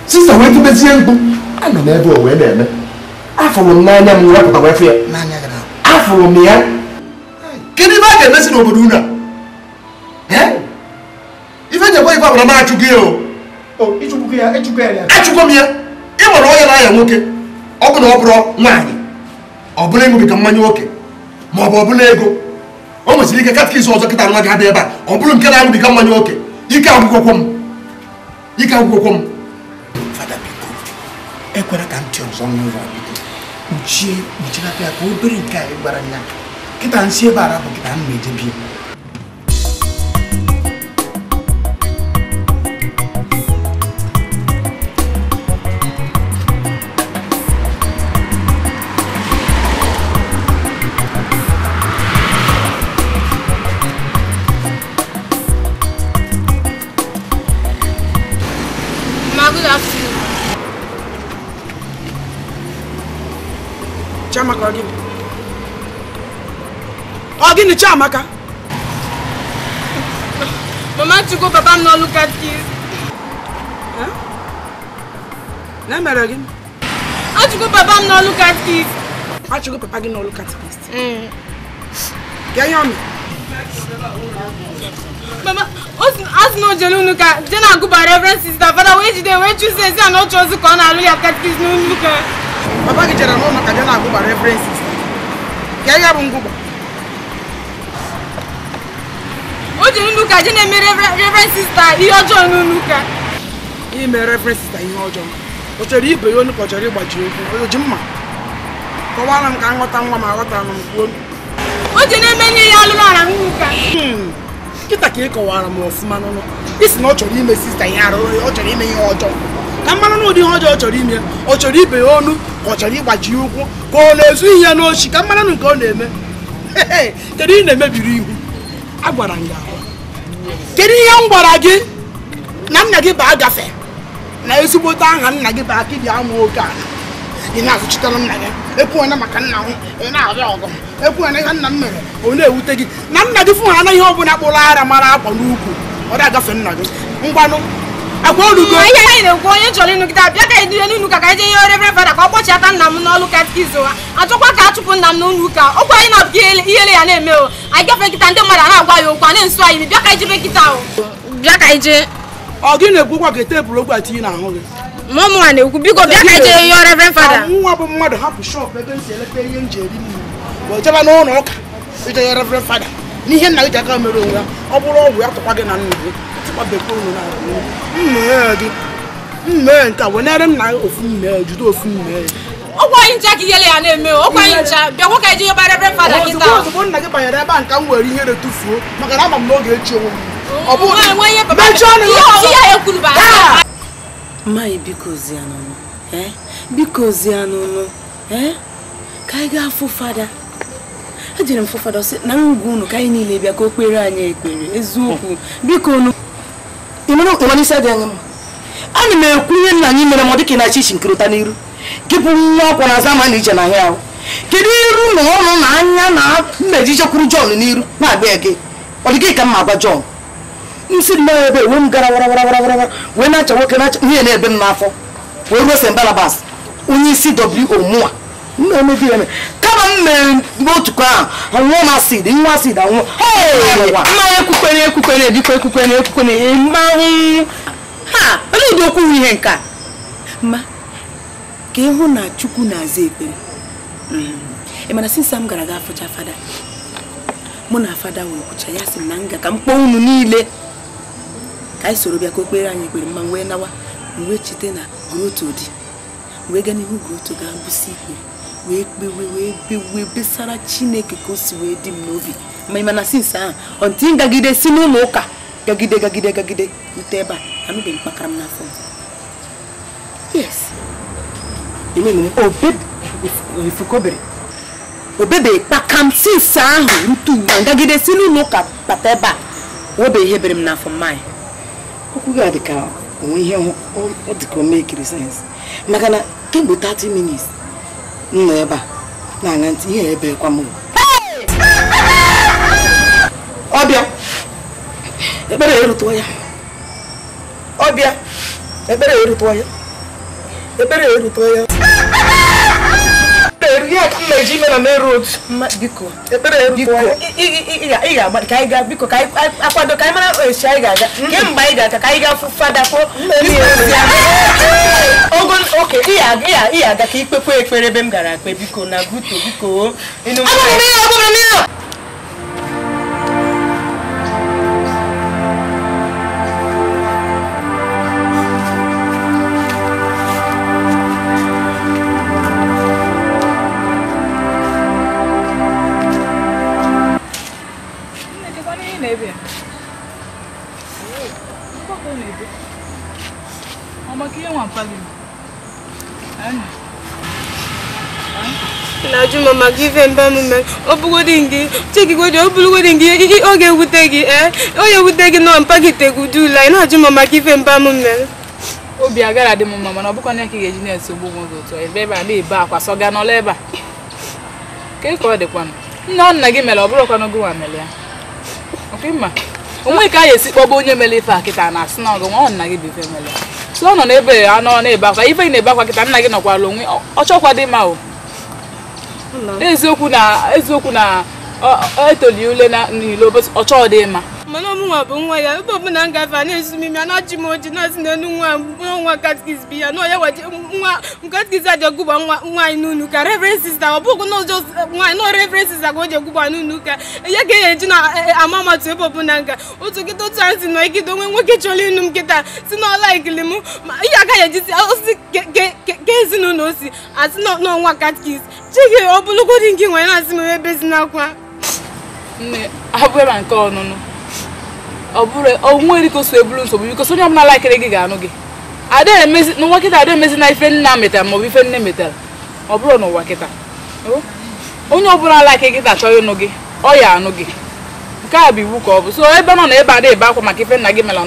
sista wee tubezie mkpu anọ m ebe o wee na-eme afụrụ m n'anya m wepụta wefe ya afụrụ m ya kedu a ga-emesi n'obodo unu a ife nyekwa ife agbara m achụgo ya o achụgo m ya ị nwere onye na-anya nwoke ọ bụ na ọ bụrụ nwaanyị ọ bụrụ ịṅụbiga mmanya nwoke ma ọ bụ ọbụla ego o nwesịrị ike katkis ọzọ kịta nwa gị abịa ebe a ọ bụrụ nke na-aṅụbiga mmanya oke ike agwụgwọkwọ m ike agwụgwọkwọ m fada ekwela ka ntị ọzọ n'ụlọ kpuchie kpuchilata ya ka obere nke a ị gbara ya kịta nsị ebe ara bụ kịta m na-edebie ọ gịnị Chiamaka mama go, papa look at Huh? n'ọlụ katkis na emere gị go, papa look at m n'ọlụ katkis go, papa gị mm. look at this. ihe ọ mere Mama, ask no jelu nuka, then I go by reverend sister. Father, where did they where you say say no chose ko na lu ya catechism nuka. Baba ki jera no maka then I go by reverend sister. Ke ya bu jiri ndị ka je na-eme reverend sista ihe ọjọọ n'ụlọ ka. ime reverend sista ihe ọjọọ ọ chọrọ ibe ya onu ka ọ chọrọ ịgbaji okwu o ji mma kọwara m ka m ghọta nwa ma aghọtara m kwuo o ji na-eme nye ya alụrụ ala n'ụlọ ụka hmm. nkịta ka ị kọwara m ọfụma n'ụlọ isi na ọ chọrọ ime sista ihe arụ ọ chọrọ ime ihe ọjọọ ka mmanụ na ụdị ihe ọjọọ ọ chọrọ ime ọ chọrọ ibe ya onu ka ọ chọrọ ịgbaji ụkwụ ka ọ na-ezu ihe n'ochi ka mmanụ nke ọ na-eme kedu ị na-emebiri ihu agwara m ya kedu ihe m gwara gị na nna gị baa gafe na ezigbote aha nna gị baa ka ị ji amụ oke ala ị na-azụchitere nna gị ekwuona maka nna m ị na-arịa ọgụ ekwuona ihe nna m mere ọ na-ewute gị na nna gị fụ ha anaghị ọ bụla kpụrụ ara mara akwa n'ukwu ọ dị agafe nna gị ngwanụ akwa orugo ihe anyị na-ekwu onye chọrọ ịnụ kịta bịa ka anyị dure ụka ka anyị ihe yọọ revren fada ka ọ kpọchiata nna m n'ọlụ katikizm ha achọkwa ka achụpụ nna m n'ụlọ ụka ọkwa na-abụghị ihele ya na-eme o anyị gafee nkịta ndị mmadụ na-agwa ya okwu a na-esu anyị bịa ka o bịa ka ọ gị na-ekwu kwa ka tepụrụ ogwe atinye n'ahụ gị mụ mụnwa na-ekwu biko bịa ka anyị jee yọọ nwa bụ mmadụ hapụ shọpụ ebe ihe ọ bụrụ ọgwụ na ọbẹ̀kọ́ òun náà mmèé gị mmèé nke wụnyere m na ofu mmèé jide ofu mmèé ọkwa anyị ncha ka ihele ya na-eme ọkwa anyị ncha bịakwa ka eji yọbara ebe fada gị taa ozugbo nna gị banyere ebe a nka m were ihere tufuo maka na ama m n'oge echi onwe m ọ bụghị mechie ọnụ ya mmaghị biko ozi anụnụ ka anyị gaa fụ fada ejere m fụ fada sị na ngwa unu ka anyị niile bịa ka o kpere anyị ekpere eziokwu biko unu ịmana isi adị anya mma ana m ekwu ihe nna anyị mere m dịka ka na chichi nkirịta n'iru gị bụ nwa ọkwa na azama na ije na ahịa ahụ kedu iru na ọnụ na anya na mmeji jekwuru John n'iru na-abịa gị ọ dị gị ka mma agwa John m ebe wee m gara wara wara wara wee na-acha nwoke na-acha nwunye na-ebe m n'afọ wee ruo St. onye isi mmemme emebi kama m mere otukọ ahụ nwụọ m asid nwa asid anwụ mmanya ekwukwere ekwukwere dịkwa ekwukwere ekwukwere mmanwụ ha onye ụdị okwughị ihe nke a ma ka ịhụ na chukwu na-aza ekpere hmm. ị mana sinsa m gara ga fụcha fada mụ na fada wee kwụcha ya sị na nga ka m kpọọ unu niile ka anyị soro bịa ka o kpere anyị ekpere mma wee nawa wee chete na groto dị wee gaa n'ihu groto gaa bụsi ikpere wee kpewe wee bewe besara chineke ka o si wee dị m n'obi ma ị mana sinsi ahụ ọntị m gagide si n'ụlọ ụka gagide gagide gagide rute ebe a anụbeghị mkpakara m n'afọ yes obebere obebeghị kpaka m sinsi ahụ ntu ma gagide si n'ụlọ ụka bata ebe a webeghị ihe bere m n'afọ mmanya okwu gị dị ka onwe ihe ọ dị ka o mee kiri sayensị maka na kemgbe 30 minutes m nọ ebe a na-aṅa ntị ihe ebe ebekwa m ọbịa ekpere erutuo ya ọbịa ekpere erutuo ya ekpere erutuo ya biko ka akwado mara esi anyị ga-aga mm. kemgbe anyị ga-aga ka anyị ga-afụ fada kpọọ mm. ogo oke ị ga ikpekwe ekpere ebe m gara akpe biko na buto biko maka ife mbe m mere ọ bụgodị gị chekigodị ọ bụrụgodị gị oge ewute gị ee eh? onye ewute gị nọ mpagitegwu dula ị na-ajụ m maka ife mba m mere obi agara dị m mma mana ọ bụkwa na ka ị ga-eji na-esogbu m ụzọ ụtọ ebe ebe a na-ebe akwa sọga n'ọla ebe a ka ka ọ dịkwanụ nne ọ nna gị mere ọ bụrụkwanụ gị nwa mere ya onwe ka a ga-esi kpọba onye mere ife a na-asị na ọgụ nwa nna gị bụ ife mere ya so ọ nọ n'ebe anọ na-ebe akwa ife ị na-ebe akwa kịta nna gị nọkwara onwe ọ chọkwa dị mma o eziokwu na etoli ule na n'ilo ọchọ dị mma mana ọmụnwa bụ nwa ya ebe ọbụla m gafe na-ezumime a na-achị m oji na-asị n'elu nwa nwa katikis bi ya na onye waji nwa katikis adị ọgụgba nwaanyị n'ụlọ ụka reverend sista ọ bụghị na ụjọ nwaanyị na reverend sista ka o ji ọgụgba n'ụlọ ka ya ga eji na e, ama amatụ ebe ọbụla nga otu nkịta otu anyị si na ikide onwe nwoke chọrọ ịnụ m nkịta si na ọla ikili m ma ihe agaghị ejizi osisi ke ezinụlọ osi asị na ọnwa katikis chike ọ bụlụgodị nke nwere na-asị m ebe si n'akwa nne abụghị ma nke ọnụnụ onwe e, dịka o eburu nsogbu bikos onye ọbụla laikere gị ga-anụ gị n'ụwa kịta ada emezi na ife nna metara maọbụ ife nne metara ọ bụrụ n'ụwa kịta onye ọbụla laikere gị ga-achọ ịnụ gị ọ ya anụ gị nke a bụ iwu ka ọ bụ so ebe nọ na ebe ada ebe akwa maka ife nna gị mela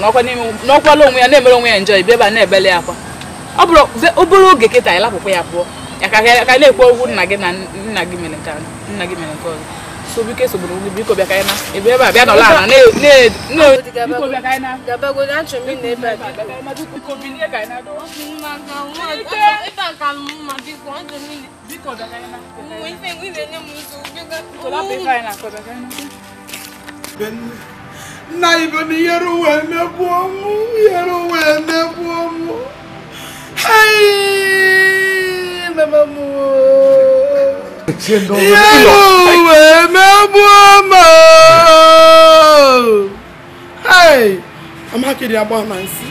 n'ọkwala onwe ya na-emere onwe ya njọ ibi ebe a na-ebele akwa ọ bụrụ obere oge kịta ịlapụkwa ya pụọ ya ka na-ekwu okwu nna gị na nna gị mere nke ọzọ sobi ke sobo ni biko bia kaina e bia ba bia no la na ne ne ne biko bia kaina da ba go na chumi ne ba biko bi ne kaina do ma ga wa e ba ka mu ma biko on do mi biko da kaina mu ife mu ife ne mu so biko ga ko la pe kaina ko da kaina ben na ibo ni yero we ne bo mu yero we ne bo mu hey mama mu ichie ndị ọrụ wee megbuo m amakịdị agba na nsị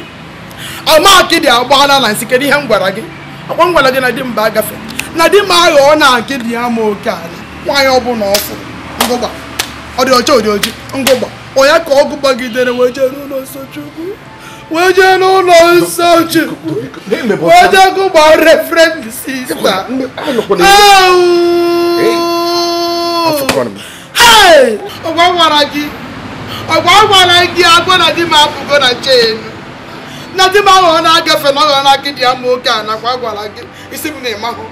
amakịdị na kedu ihe m gwara gị akwa m gwara gị na di m agafe na di m ọ na akịdị ya ma oke ala nwaanyị ọbụla ọfụ ngụgba ọ dị ọcha ọ dị ngụgba onye ka ọgụ gbagidere wee jee n'ụlọ nsọ Chukwu wee jee n'ụlọ nsọ Chukwu wee jee gụgba refrend sista ọgwa gwara gị ọgwa gwara gị agwọ na di m apụgo na nche ya na di m aghọọ na-agafe na ọghọọ na akịdị ama oge a nakwa agwara gị isi m na-ịmahụ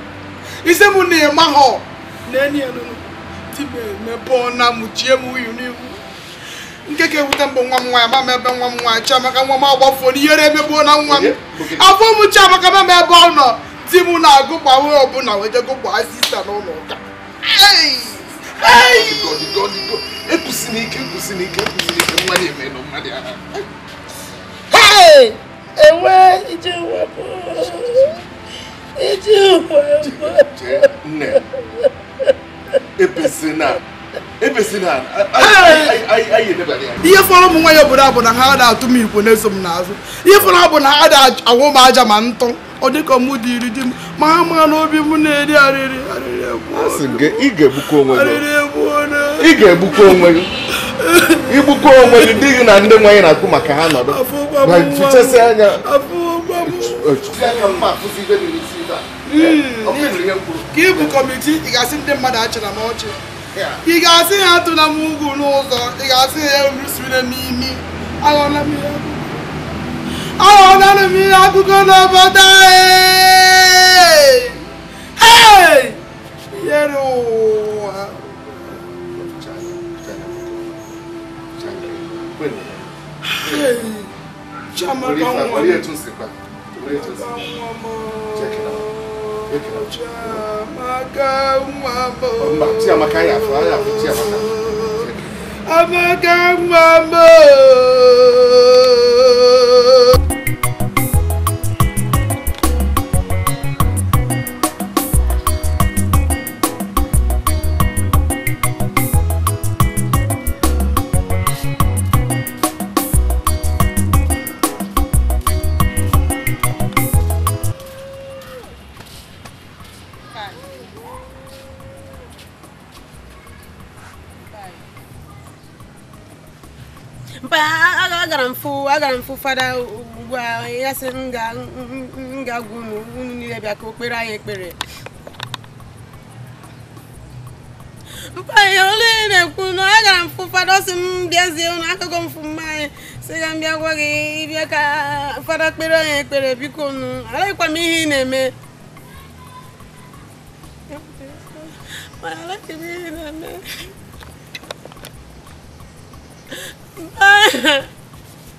isi m na-ịmahụ na enyi ya nụnụ di m emebe ọna mụchie m uyu n'ihu nkeke ga-ewute mbụ nwa m nwaanyị ma ebe nwa m nwaanyị Chiamaka nwa m agbafuo n'ihere emegbuo na nwa m afọ m Chiamaka ma ebe ọ nọ di m na-agụ gbawe ọbụla wee jego gbaa sista n'ụlọ ụka enwe iji wepụ ihe fọrọ ụmụ ya obodo a bụ na ha ada atụ m na-eso m n'azụ ihe bụ na ha na-awụ m aja ma ntụ ọ dịka mụ dị iri di m ma ha ma n'obi m na-eri arịrị ị ga-egbukwa onwe gị igbukwa onwe gị dị gị na ndị nwaanyị na-akpụ maka ha nọdụ ka kọmitii ndị mmadụ m ọchị ị ga-asị ya atụla m ugwu n'ụzọ ị ga-asị ya erusire n'imi aghọnara m ihe akụkọ n'obodo anyị yere ụwa chiamaka nwa m ọmọ tí a máa ká a máa agara m fụ agara m fụ fada ugbu a ya sị m ga-agwa unu unu niile bịa ka o kpere anyị ekpere mpaghara ole na-ekwu na agara m fụ fada ọsị m bịazie unu akụkọ m fụ anyị sị ga m bịa gwa gị ịbịa ka fada kpere anyị ekpere biko unu alaghịkwa m ihe ị na-eme alaghị m ihe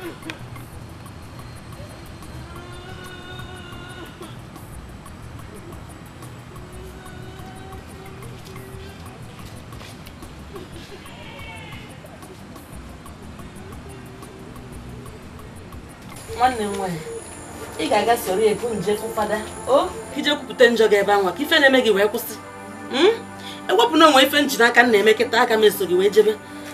nwanne m nwaanyị ị ga-aga soro ebu nje fada o ije kwupụta njọ gị ebe anwa ka ife na-eme gị wee kwụsị hmm? ewepụ na onwe ife nji n'aka na-eme kịta aka m eso gị wee jebe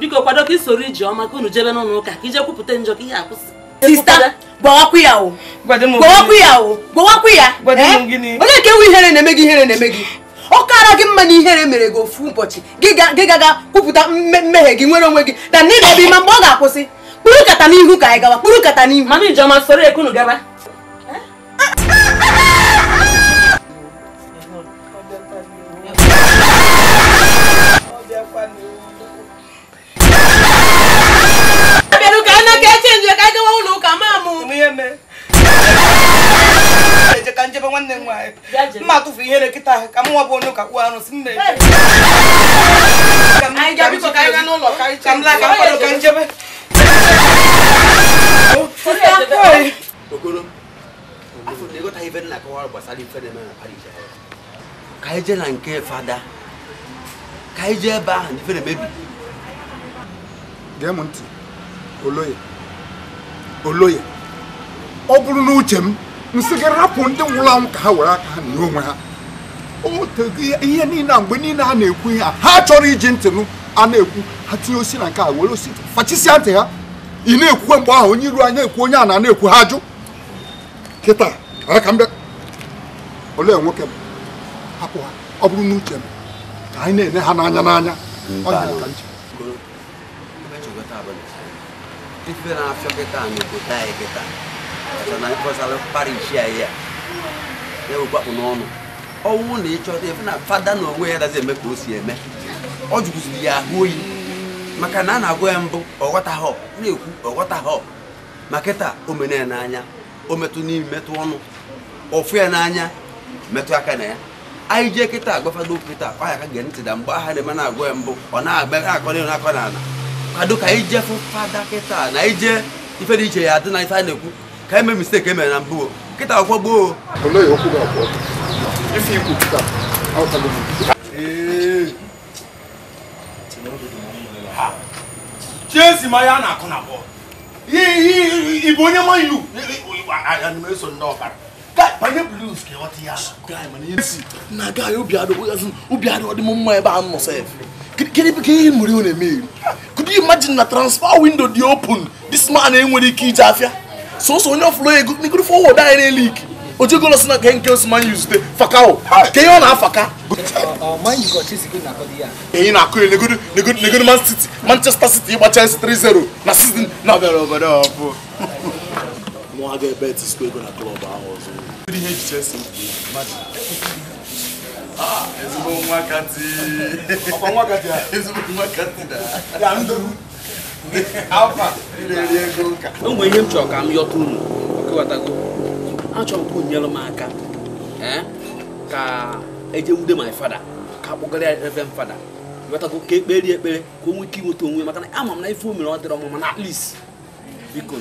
biko kwado ka isoro iji ọma ka unu jebe n'ụlọ ụka ka ije kwupụta njọ ka ihe akwụsị sista gbawakwu ya o gbawakwu ya o gbawakwu ya onye nke nwe ihere na-eme gị ihere na-eme gị ọ kara gị mma na ihere mere gị ofu ụbọchị gị gaga kwupụta mmehie gị nwere onwe gị na ndị na-ebe ime mgbe ọ ga-akwụsị kpụrụ kata n'ihu ka anyị gawa kpụrụ kata n'ihu mana ijeọma soro ekunu gaba eh? na ka echenji ka anyị gawa ụlọ ụka maa mụ ka njebe nwanne m nwaanyị mma atụfu ihere nkịta ahụ ka nwa bụ onye ụka kpuo arụsị m ka ka njebe okoro na ka na nke fada ebe ahụ ife na-emebi gee m ntị Oloye Oloye ọ bụrụ n'uche m nsị gị rapụ ndị nwụrụ anwụ ka ha were aka ha na onwe ha ihe niile a mgbe niile a na-ekwu ihe a ha chọrọ iji ntị nụ a na-ekwu ha tinye osi na nke a were osi fachisịa ntị ha ị na-ekwukwe mgbe ahụ onye iru anya ekwu onye a na-ekwu ha jụ kịta aka m olee nwoke m hapụ ha ọ bụrụ n'uche m ka anyị na-ene ha n'anya n'anya ọ ka diferença kita ni kita ya kita. Karena itu kalau Parisia ya, ya ubah punono. Ọnwụ na-echọta efe na fada na onwe ya dazi eme ka o si eme ọ jụgụziri ya ahụ oyi maka na a na-agụ ya mbụ ọghọtahọ na-ekwu ọghọtahọ ma kịta omena ya n'anya o metụ n'imi metụ ọnụ ọfụ ya n'anya metụ aka na ya anyị jee kịta agwafado kịta ọ ya ka gee ntị na mgbe aha na-eme na-agụ ya mbụ ọ na-agba akọ na akọ na ala kwado ka ije jee fụ fada kịta na ije ife dị iche ya dị na ife a na-ekwu ka e mee mistake emere na mbụ kịta akwụkwọ gboo chiesi ma ya na-akụ na bọọlụ ị bụ onye ma ilu eso ndị ọbara na i obi adịghị mma ebe a nọ sef ihe mere unu eme iri could you imagine na transfer window dị open this man enwere ike ije afịa sọsọ onye ọfụrụ ego n'igoro fọwọd anyị n'elu ike ojegolo si na nke nke osmanya zute fakao ka ihe ọ na-afaka enyi na-akụ ya negoro man manchester city ịgba chelsea 3-0 na season na ọbụ nwa ga-ebe ezigbo nwakati ọkwa nwakati a ezigbo o nwere ihe m chọrọ ka m yọta unu ọkụwatago achọrọ m ka onyere m aka eh? ka eje wude my fada ka akpọgara ya ebe m fada wetago ka ekperi ekpere ka o nwee ike inweta onwe maka na ama m na ife o mere ọ dịrị ọmụma na at least biko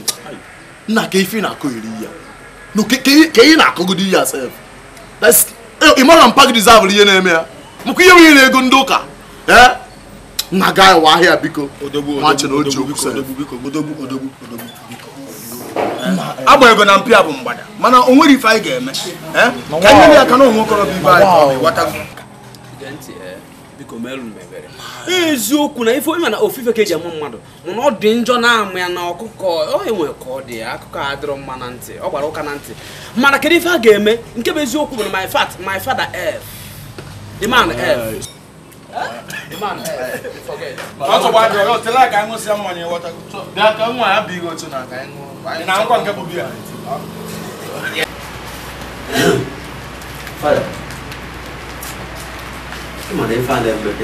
nna ka ife na-akụ iri ya ka ị na-akụgodi ya sef Eh, ị mara mpa gị dizavụrụ ihe na-eme ya maka ihe nwere ego ndị ụka na ga wa ahịa biko agba ego na mpịa bụ mgbada mana o nwere ife anyị ga-eme eh? ka nyere ya aka na ụmụ okorobịa ibe anyị eziokwu na ife onye ma na ofufe ka eji amụ mmadụ mụ na ọ dị njọ na-amụ ya na ọkụkọ ọ e ka ọ dị akụkọ a mma na ntị ọ gbara ụka na ntị mana kedu ife a ga-eme nke bụ eziokwu bụ na my fat my father f the man f the man ọ dị na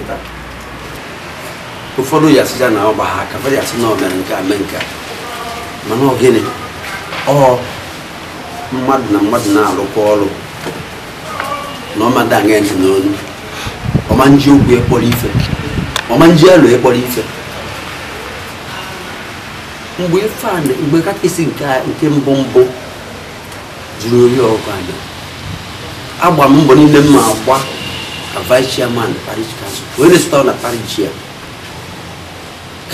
ka ife ụfọdụ yasịja na ọgba ha aka fọdụ yasị na ọ mere nke a mee nke a mana ọ gịnị ọ mmadụ na mmadụ na-arụkwa ọrụ na ọmada aṅa ntị n'onu ọma nji okwu ekpọrọ ife ọma nji elu ekpọrọ ife mgbe ife a mgbe kakịsị nke mbụ mbụ juru ori ọgụ anya agba m mbọ niile m ma agba ka vice chairman parish council wee resịta na parish chair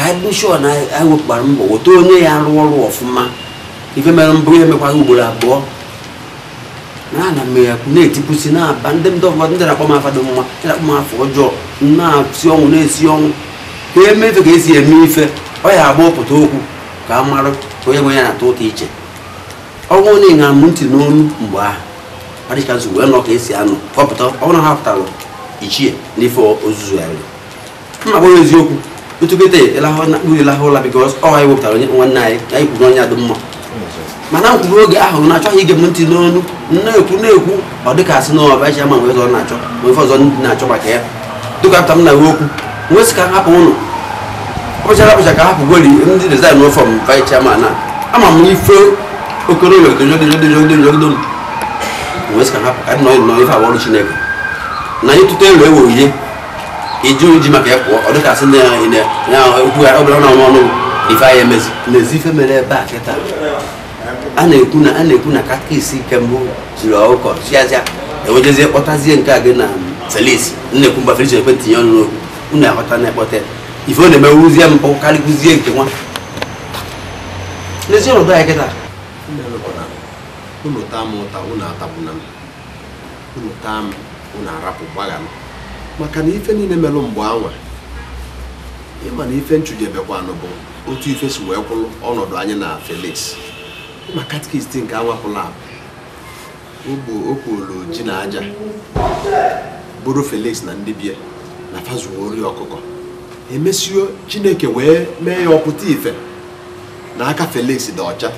ka anyị bụ na e anyị mbọ weta onye ya rụọ ọrụ ọfụma ife mere mbụ ya emekwaghị ugboro abụọ na ana m ya na-etipụsi na-aba ndị ndị ụfọdụ ndị na-akpọ m afa dị mma ndị na-akpọ m afọ ọjọọ na-esi ọnwụ na-esi ọnwụ ka eme ife ka esi eme ife ọ ya agba ọpụta okwu ka a marụ onye nwe ya na-atọ ụtọ iche ọnwụ onye ṅara m ntị n'olu mgbe ahụ adịcha nsogbu wee nọ ka esi anụ kọpụta na ha pụtara ichie n'ife ozuzu ya mma eziokwu itu kete ela ho na du ela ho la because oh i worked on one night ai ku nya dum ma mana ku ro ga ho na cho hi ge munti no nu na ku na ku o de ka si no ba ja ma we zo na cho we fo zo na cho ba ke du ka tam na wo ku we ska ha po no o ja la ba ja ka ha po gori ndi de za no from vice chairman na ama mu ife okoro we de jo de jo de jo de jo de we ska ha ka no no ifa wo ru chineke na yitu te le wo ye iji oji maka ya pụọ ọ dịka asị okwu ya ọ na ọnụ ọnụ ife ahịa emezi n'ezi ife mere ebe a kịta a na-ekwu na a na-ekwu na katkisi nke mbụ jiri ọkụkọ chiazịa enwejezie kpọtazie nke a gị na selis na-ekwu mgbe friji ekwe tinye ọnụ n'okwu unu na-ekpọta ife ọ na-emewuzie nke nwa n'ezi ọnọdụ kịta m ụta atagbu na m m arapụ gbaga m maka na ife niile merụ mgbe anwa ịma na ife nchụjebekwanụ bụ otu ife si wee kwụlụ ọnọdụ anyị na Felix ma katikist nke anwapụla o kporo ji na aja bụrụ Felix na ndị bie na fazuo ori ọkụkọ emesio Chineke wee mee ya ọpụta ife na aka Felix dị ọcha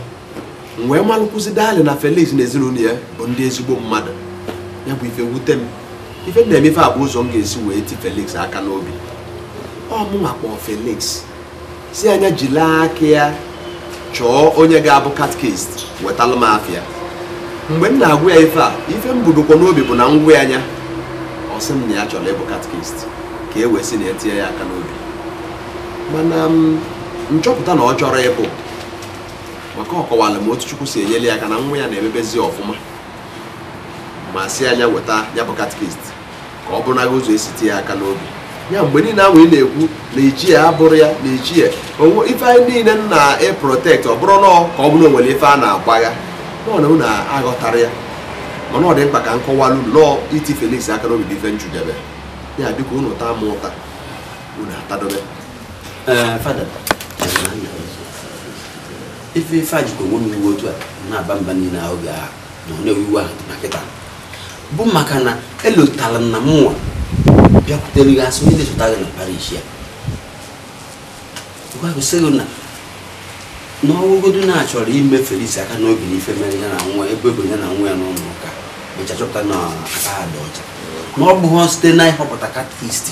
wee malụkwụzi dali na Felix na ezinụlọ ya bụ ndị ezigbo mmadụ ya bụ ife wute m ife m na-emefe a bụ ụzọ m ga-esi wee ti Felix aka n'obi ọ mụnwa kpọọ Felix si anya jila aka ya chọọ onye ga-abụ katkist wetalụ m afịa mgbe m na agwụ ya ife a ife m budokwa n'obi bụ na ngwa anya ọ sị m na ya chọrọ ịbụ katkist ka e wee si na etinye ya aka n'obi mana nchọpụta na ọ chọrọ ịbụ maka ọ kọwara m otu Chukwu si enyele ya aka na nwa ya na-emebezi ọfụma ma si anya weta ya bụ katikist ka ọ bụrụ na ụzọ esi ya aka n'obi ya mgbe niile ahụ ị na-ekwu na ya abụrụ ya na ichie ife anyị niile na-eprotekt ọ bụrụ nọọ ka ọ bụrụ nwere ife a na-agbagha na aghọtara ya mana ọ dị mkpa ka m kọwalụ nnọọ iti feliks aka n'obi bụ ife njudebe ya biko unu taa m ụta unu atadobe ife ife a onwe m iwu otu a na-aba mba na bụ maka na elotara m na mụnwa bịakwutere gị asị onye na-echọta gị na parish ya gwagosịghị na n'ọgwụgodu na-achọrọ ime felisi aka n'obi n'ife mere ya na nwa ebe ebe ya na nwa ya n'ụlọ ụka ka chọpụta na aka ha dị ọcha na ọ bụghị site na ịhọpụta katkist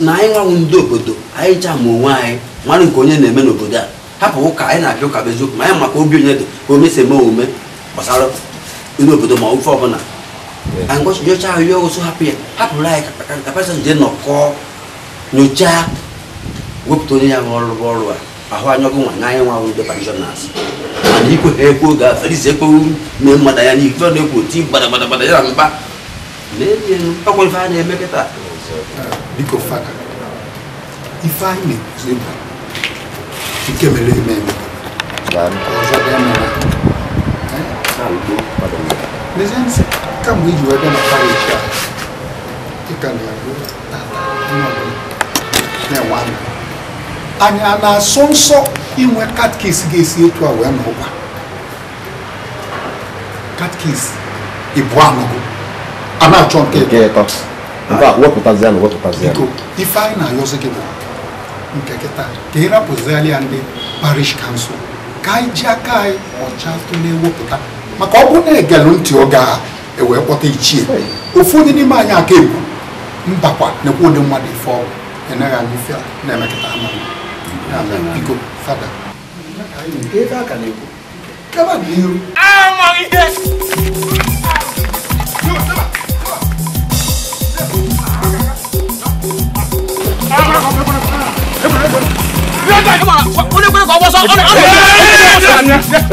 na anyị nwanwụ ndị obodo anyị chaa ma onwe anyị mara nke onye na-eme n'obodo a hapụ ụka anyị na-abịa ụka bụ eziokwu ma anyị maka obi onye dị ka omesi eme omume gbasara ndị obodo ma ofe ọbụla yes. and what your child you also happy happy like the person did not call no jack whip to near all borrower ahụ anya ọkụ nwa na anya nwa ahụ ndị pensioners mana ikwe ha ekwo ga-afelizi ekwewu na mmada ya na ife ọ na-ekwo ti gbadagbadagbada ya na mkpa na-eji ọkwere ife a na-eme kịta biko faka ife anyị na-ekwuzi mba nke mere eme eme ọzọ bịa mara Come with you, we're gonna carry each other. You can do that. And ana sonso inwe cat case gesi etu a wee n'ụwa cat case ibu anụgo a na-achọ nke nke ịtọ nke a wepụtazie na wepụtazie biko ife anyị na-ayọzi gị bụ nke kịta ka ị rapụziali ya ndị parish council ka anyị ji aka anyị ọcha tụ na-ewepụta maka ọ bụrụ na egelụ ntị oge ahụ ewe kpọta ichie ụfọdụ n'ime anyị aka ebu mbakwa nekwa ụdị mmadụ ife ọrụ enaghị anyị ife na-emekọta ama biko fada amaghị ihe onye kwere ka ọ gbọsọ ọ na-eme sàmì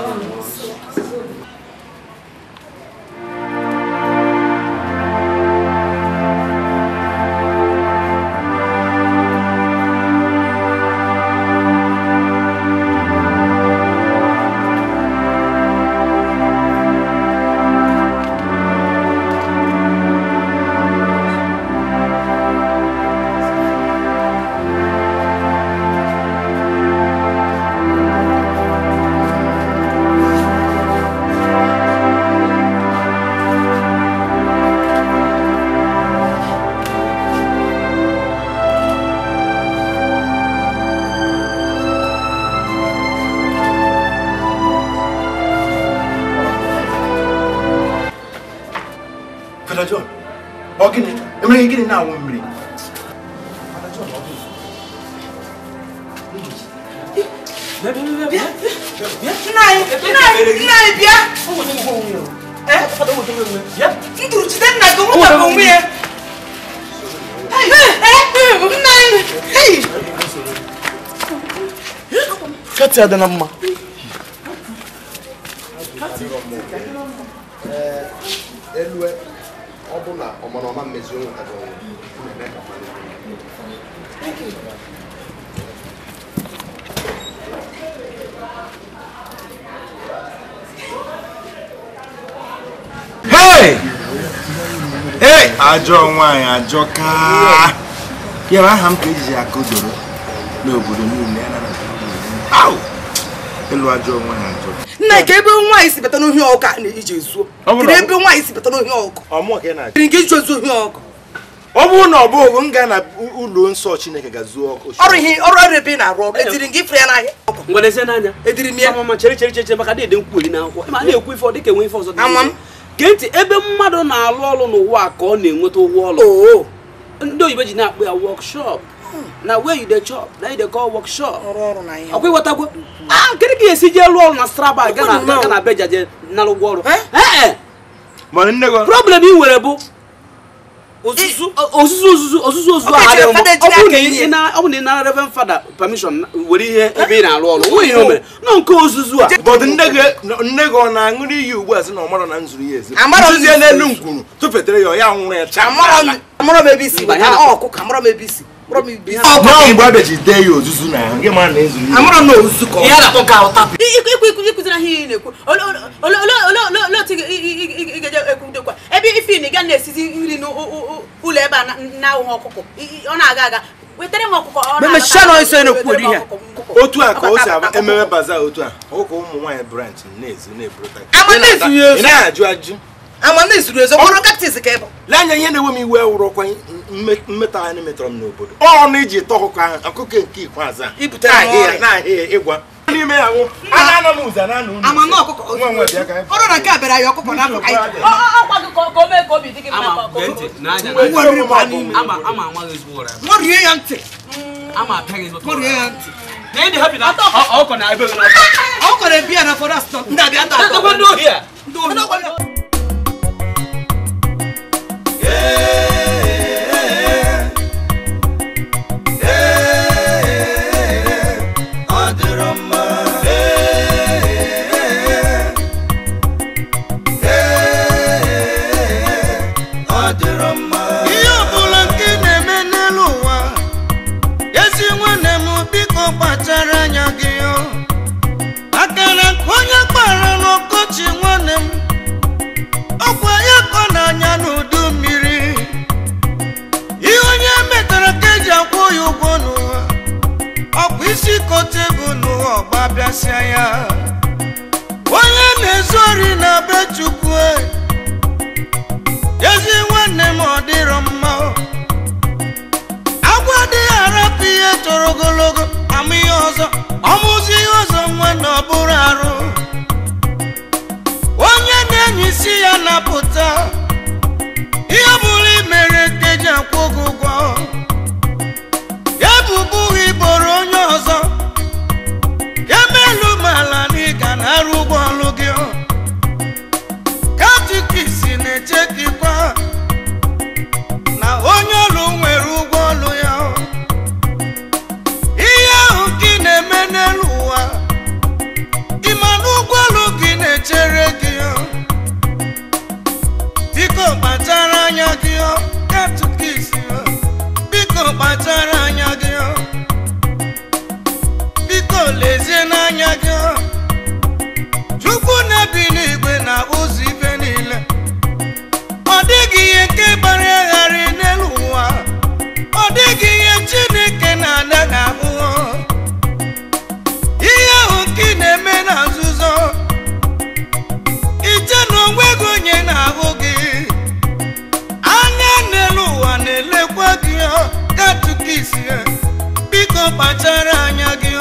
ó gịnị na-awụ mmiri ndụrụ jide nna gị nwụnwa onwe ya nna anyị kati adịla mma ajọ nwaanyị ajọ ka ya aha m ka ejiji aka doro n'obodo niile ịlụ ajọ nwaanyị ajọ nna ka ebe nwaanyị si bata n'ohi ọkụ a na-eji ezuo kiri ebe nwaanyị si bata n'ohi ọkụ kiri nke iji ezuo ohi ọkụ ọ bụrụ na ọ bụghị m gaa na ụlọ nsọ chineke ga-zuo ọkụ ọrụ ihe ọrụ ọrụ ebe ị na-arụ ọrụ etiri gị ifere ya n'ahịa ngwalezie n'anya ediri m ya ama ma chere chere chere maka na-ede nkwuoli n'akwụkwọ ma na-ekwu ife ọ dịka enwe ife ọzọ gee ntị ebe mmadụ na-alụ ọrụ n'ụwa ka ọ na-enweta ụgwọ ọrụ ndị oyibo ji na-akpọ ya wọkshọp na where you dey chop na you dey call workshop ọkwa ịghọtagwo ah kedu ka esi jee lụọ ọrụ na straba ga na beja je nara ụgwọ ọrụ problem ị nwere bụ Eh, ozuzu ozuzu ozuzu ozuzu ahụ ọ bụ na ị nara reverend fada permission were ihe ebe ị na-arụ ọrụ nwe ihe o mere nọ nke ozuzu a But nne gị ọ na-aṅụrụ iyi ugbu a sị na ọ mara na nzuru ya ezi nzuzie n'elu ngwuru tụfetere ya ọ ya nwụrụ ya chaa Amara m ebe isi ịkụziri ihe ị na-ekwu olee otu ị ga-eje ekwudekwa ebe ife na ị na-esizi nri n'ụlọ ebe a na-ahụghị ọkụkọ ọ na-aga aga wetara m ha. otu a ka o si aba ememe otu a ụka ụmụ nwanyị branch na-ezu na-eburu na-ajụ ajụ na izuru ezo ka kaktis ka ị bụ lee anya ihe na-ewe m iwe wụrụ ọkwa mmetọ anyị n'obodo ọnụ iji tọ ọkụkọ ahụ ọkụkọ nke ikpeazụ a ibute n'ahịa n'ime ya nwụ ana na amana ọkụkọ ọrụ na nke a na akụkọ ya na-ebi ya na fọrọ asụsụ ndị abịa Ei! ọgba bịasịa ya onye na-ezu ori na be chukwu e. ezi nwanne m ọ dịrọ mma agwa adịghị arapụ ihe toro ogologo ama ọzọ ọmụzi ihe ọzọ nwa na ọ bụrụ arụ onye na-enyi isi ya na-apụta ihe bụrụ imere teji akwụ gị ụgwọ ya arụ ụgbọ ọlụ gị katikisi na-eche gị kwa na onye olu nwere ụgbọ olu ya ihe ahụ gị na-eme n'elu ụwa ịma na ụgbọ ọlụ gị na-echere gị biko kpachara anya gị ya, biko kpachara anya gị biko lezie n'anya gị biko kpachara anya gị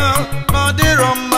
ọ dịrọ mma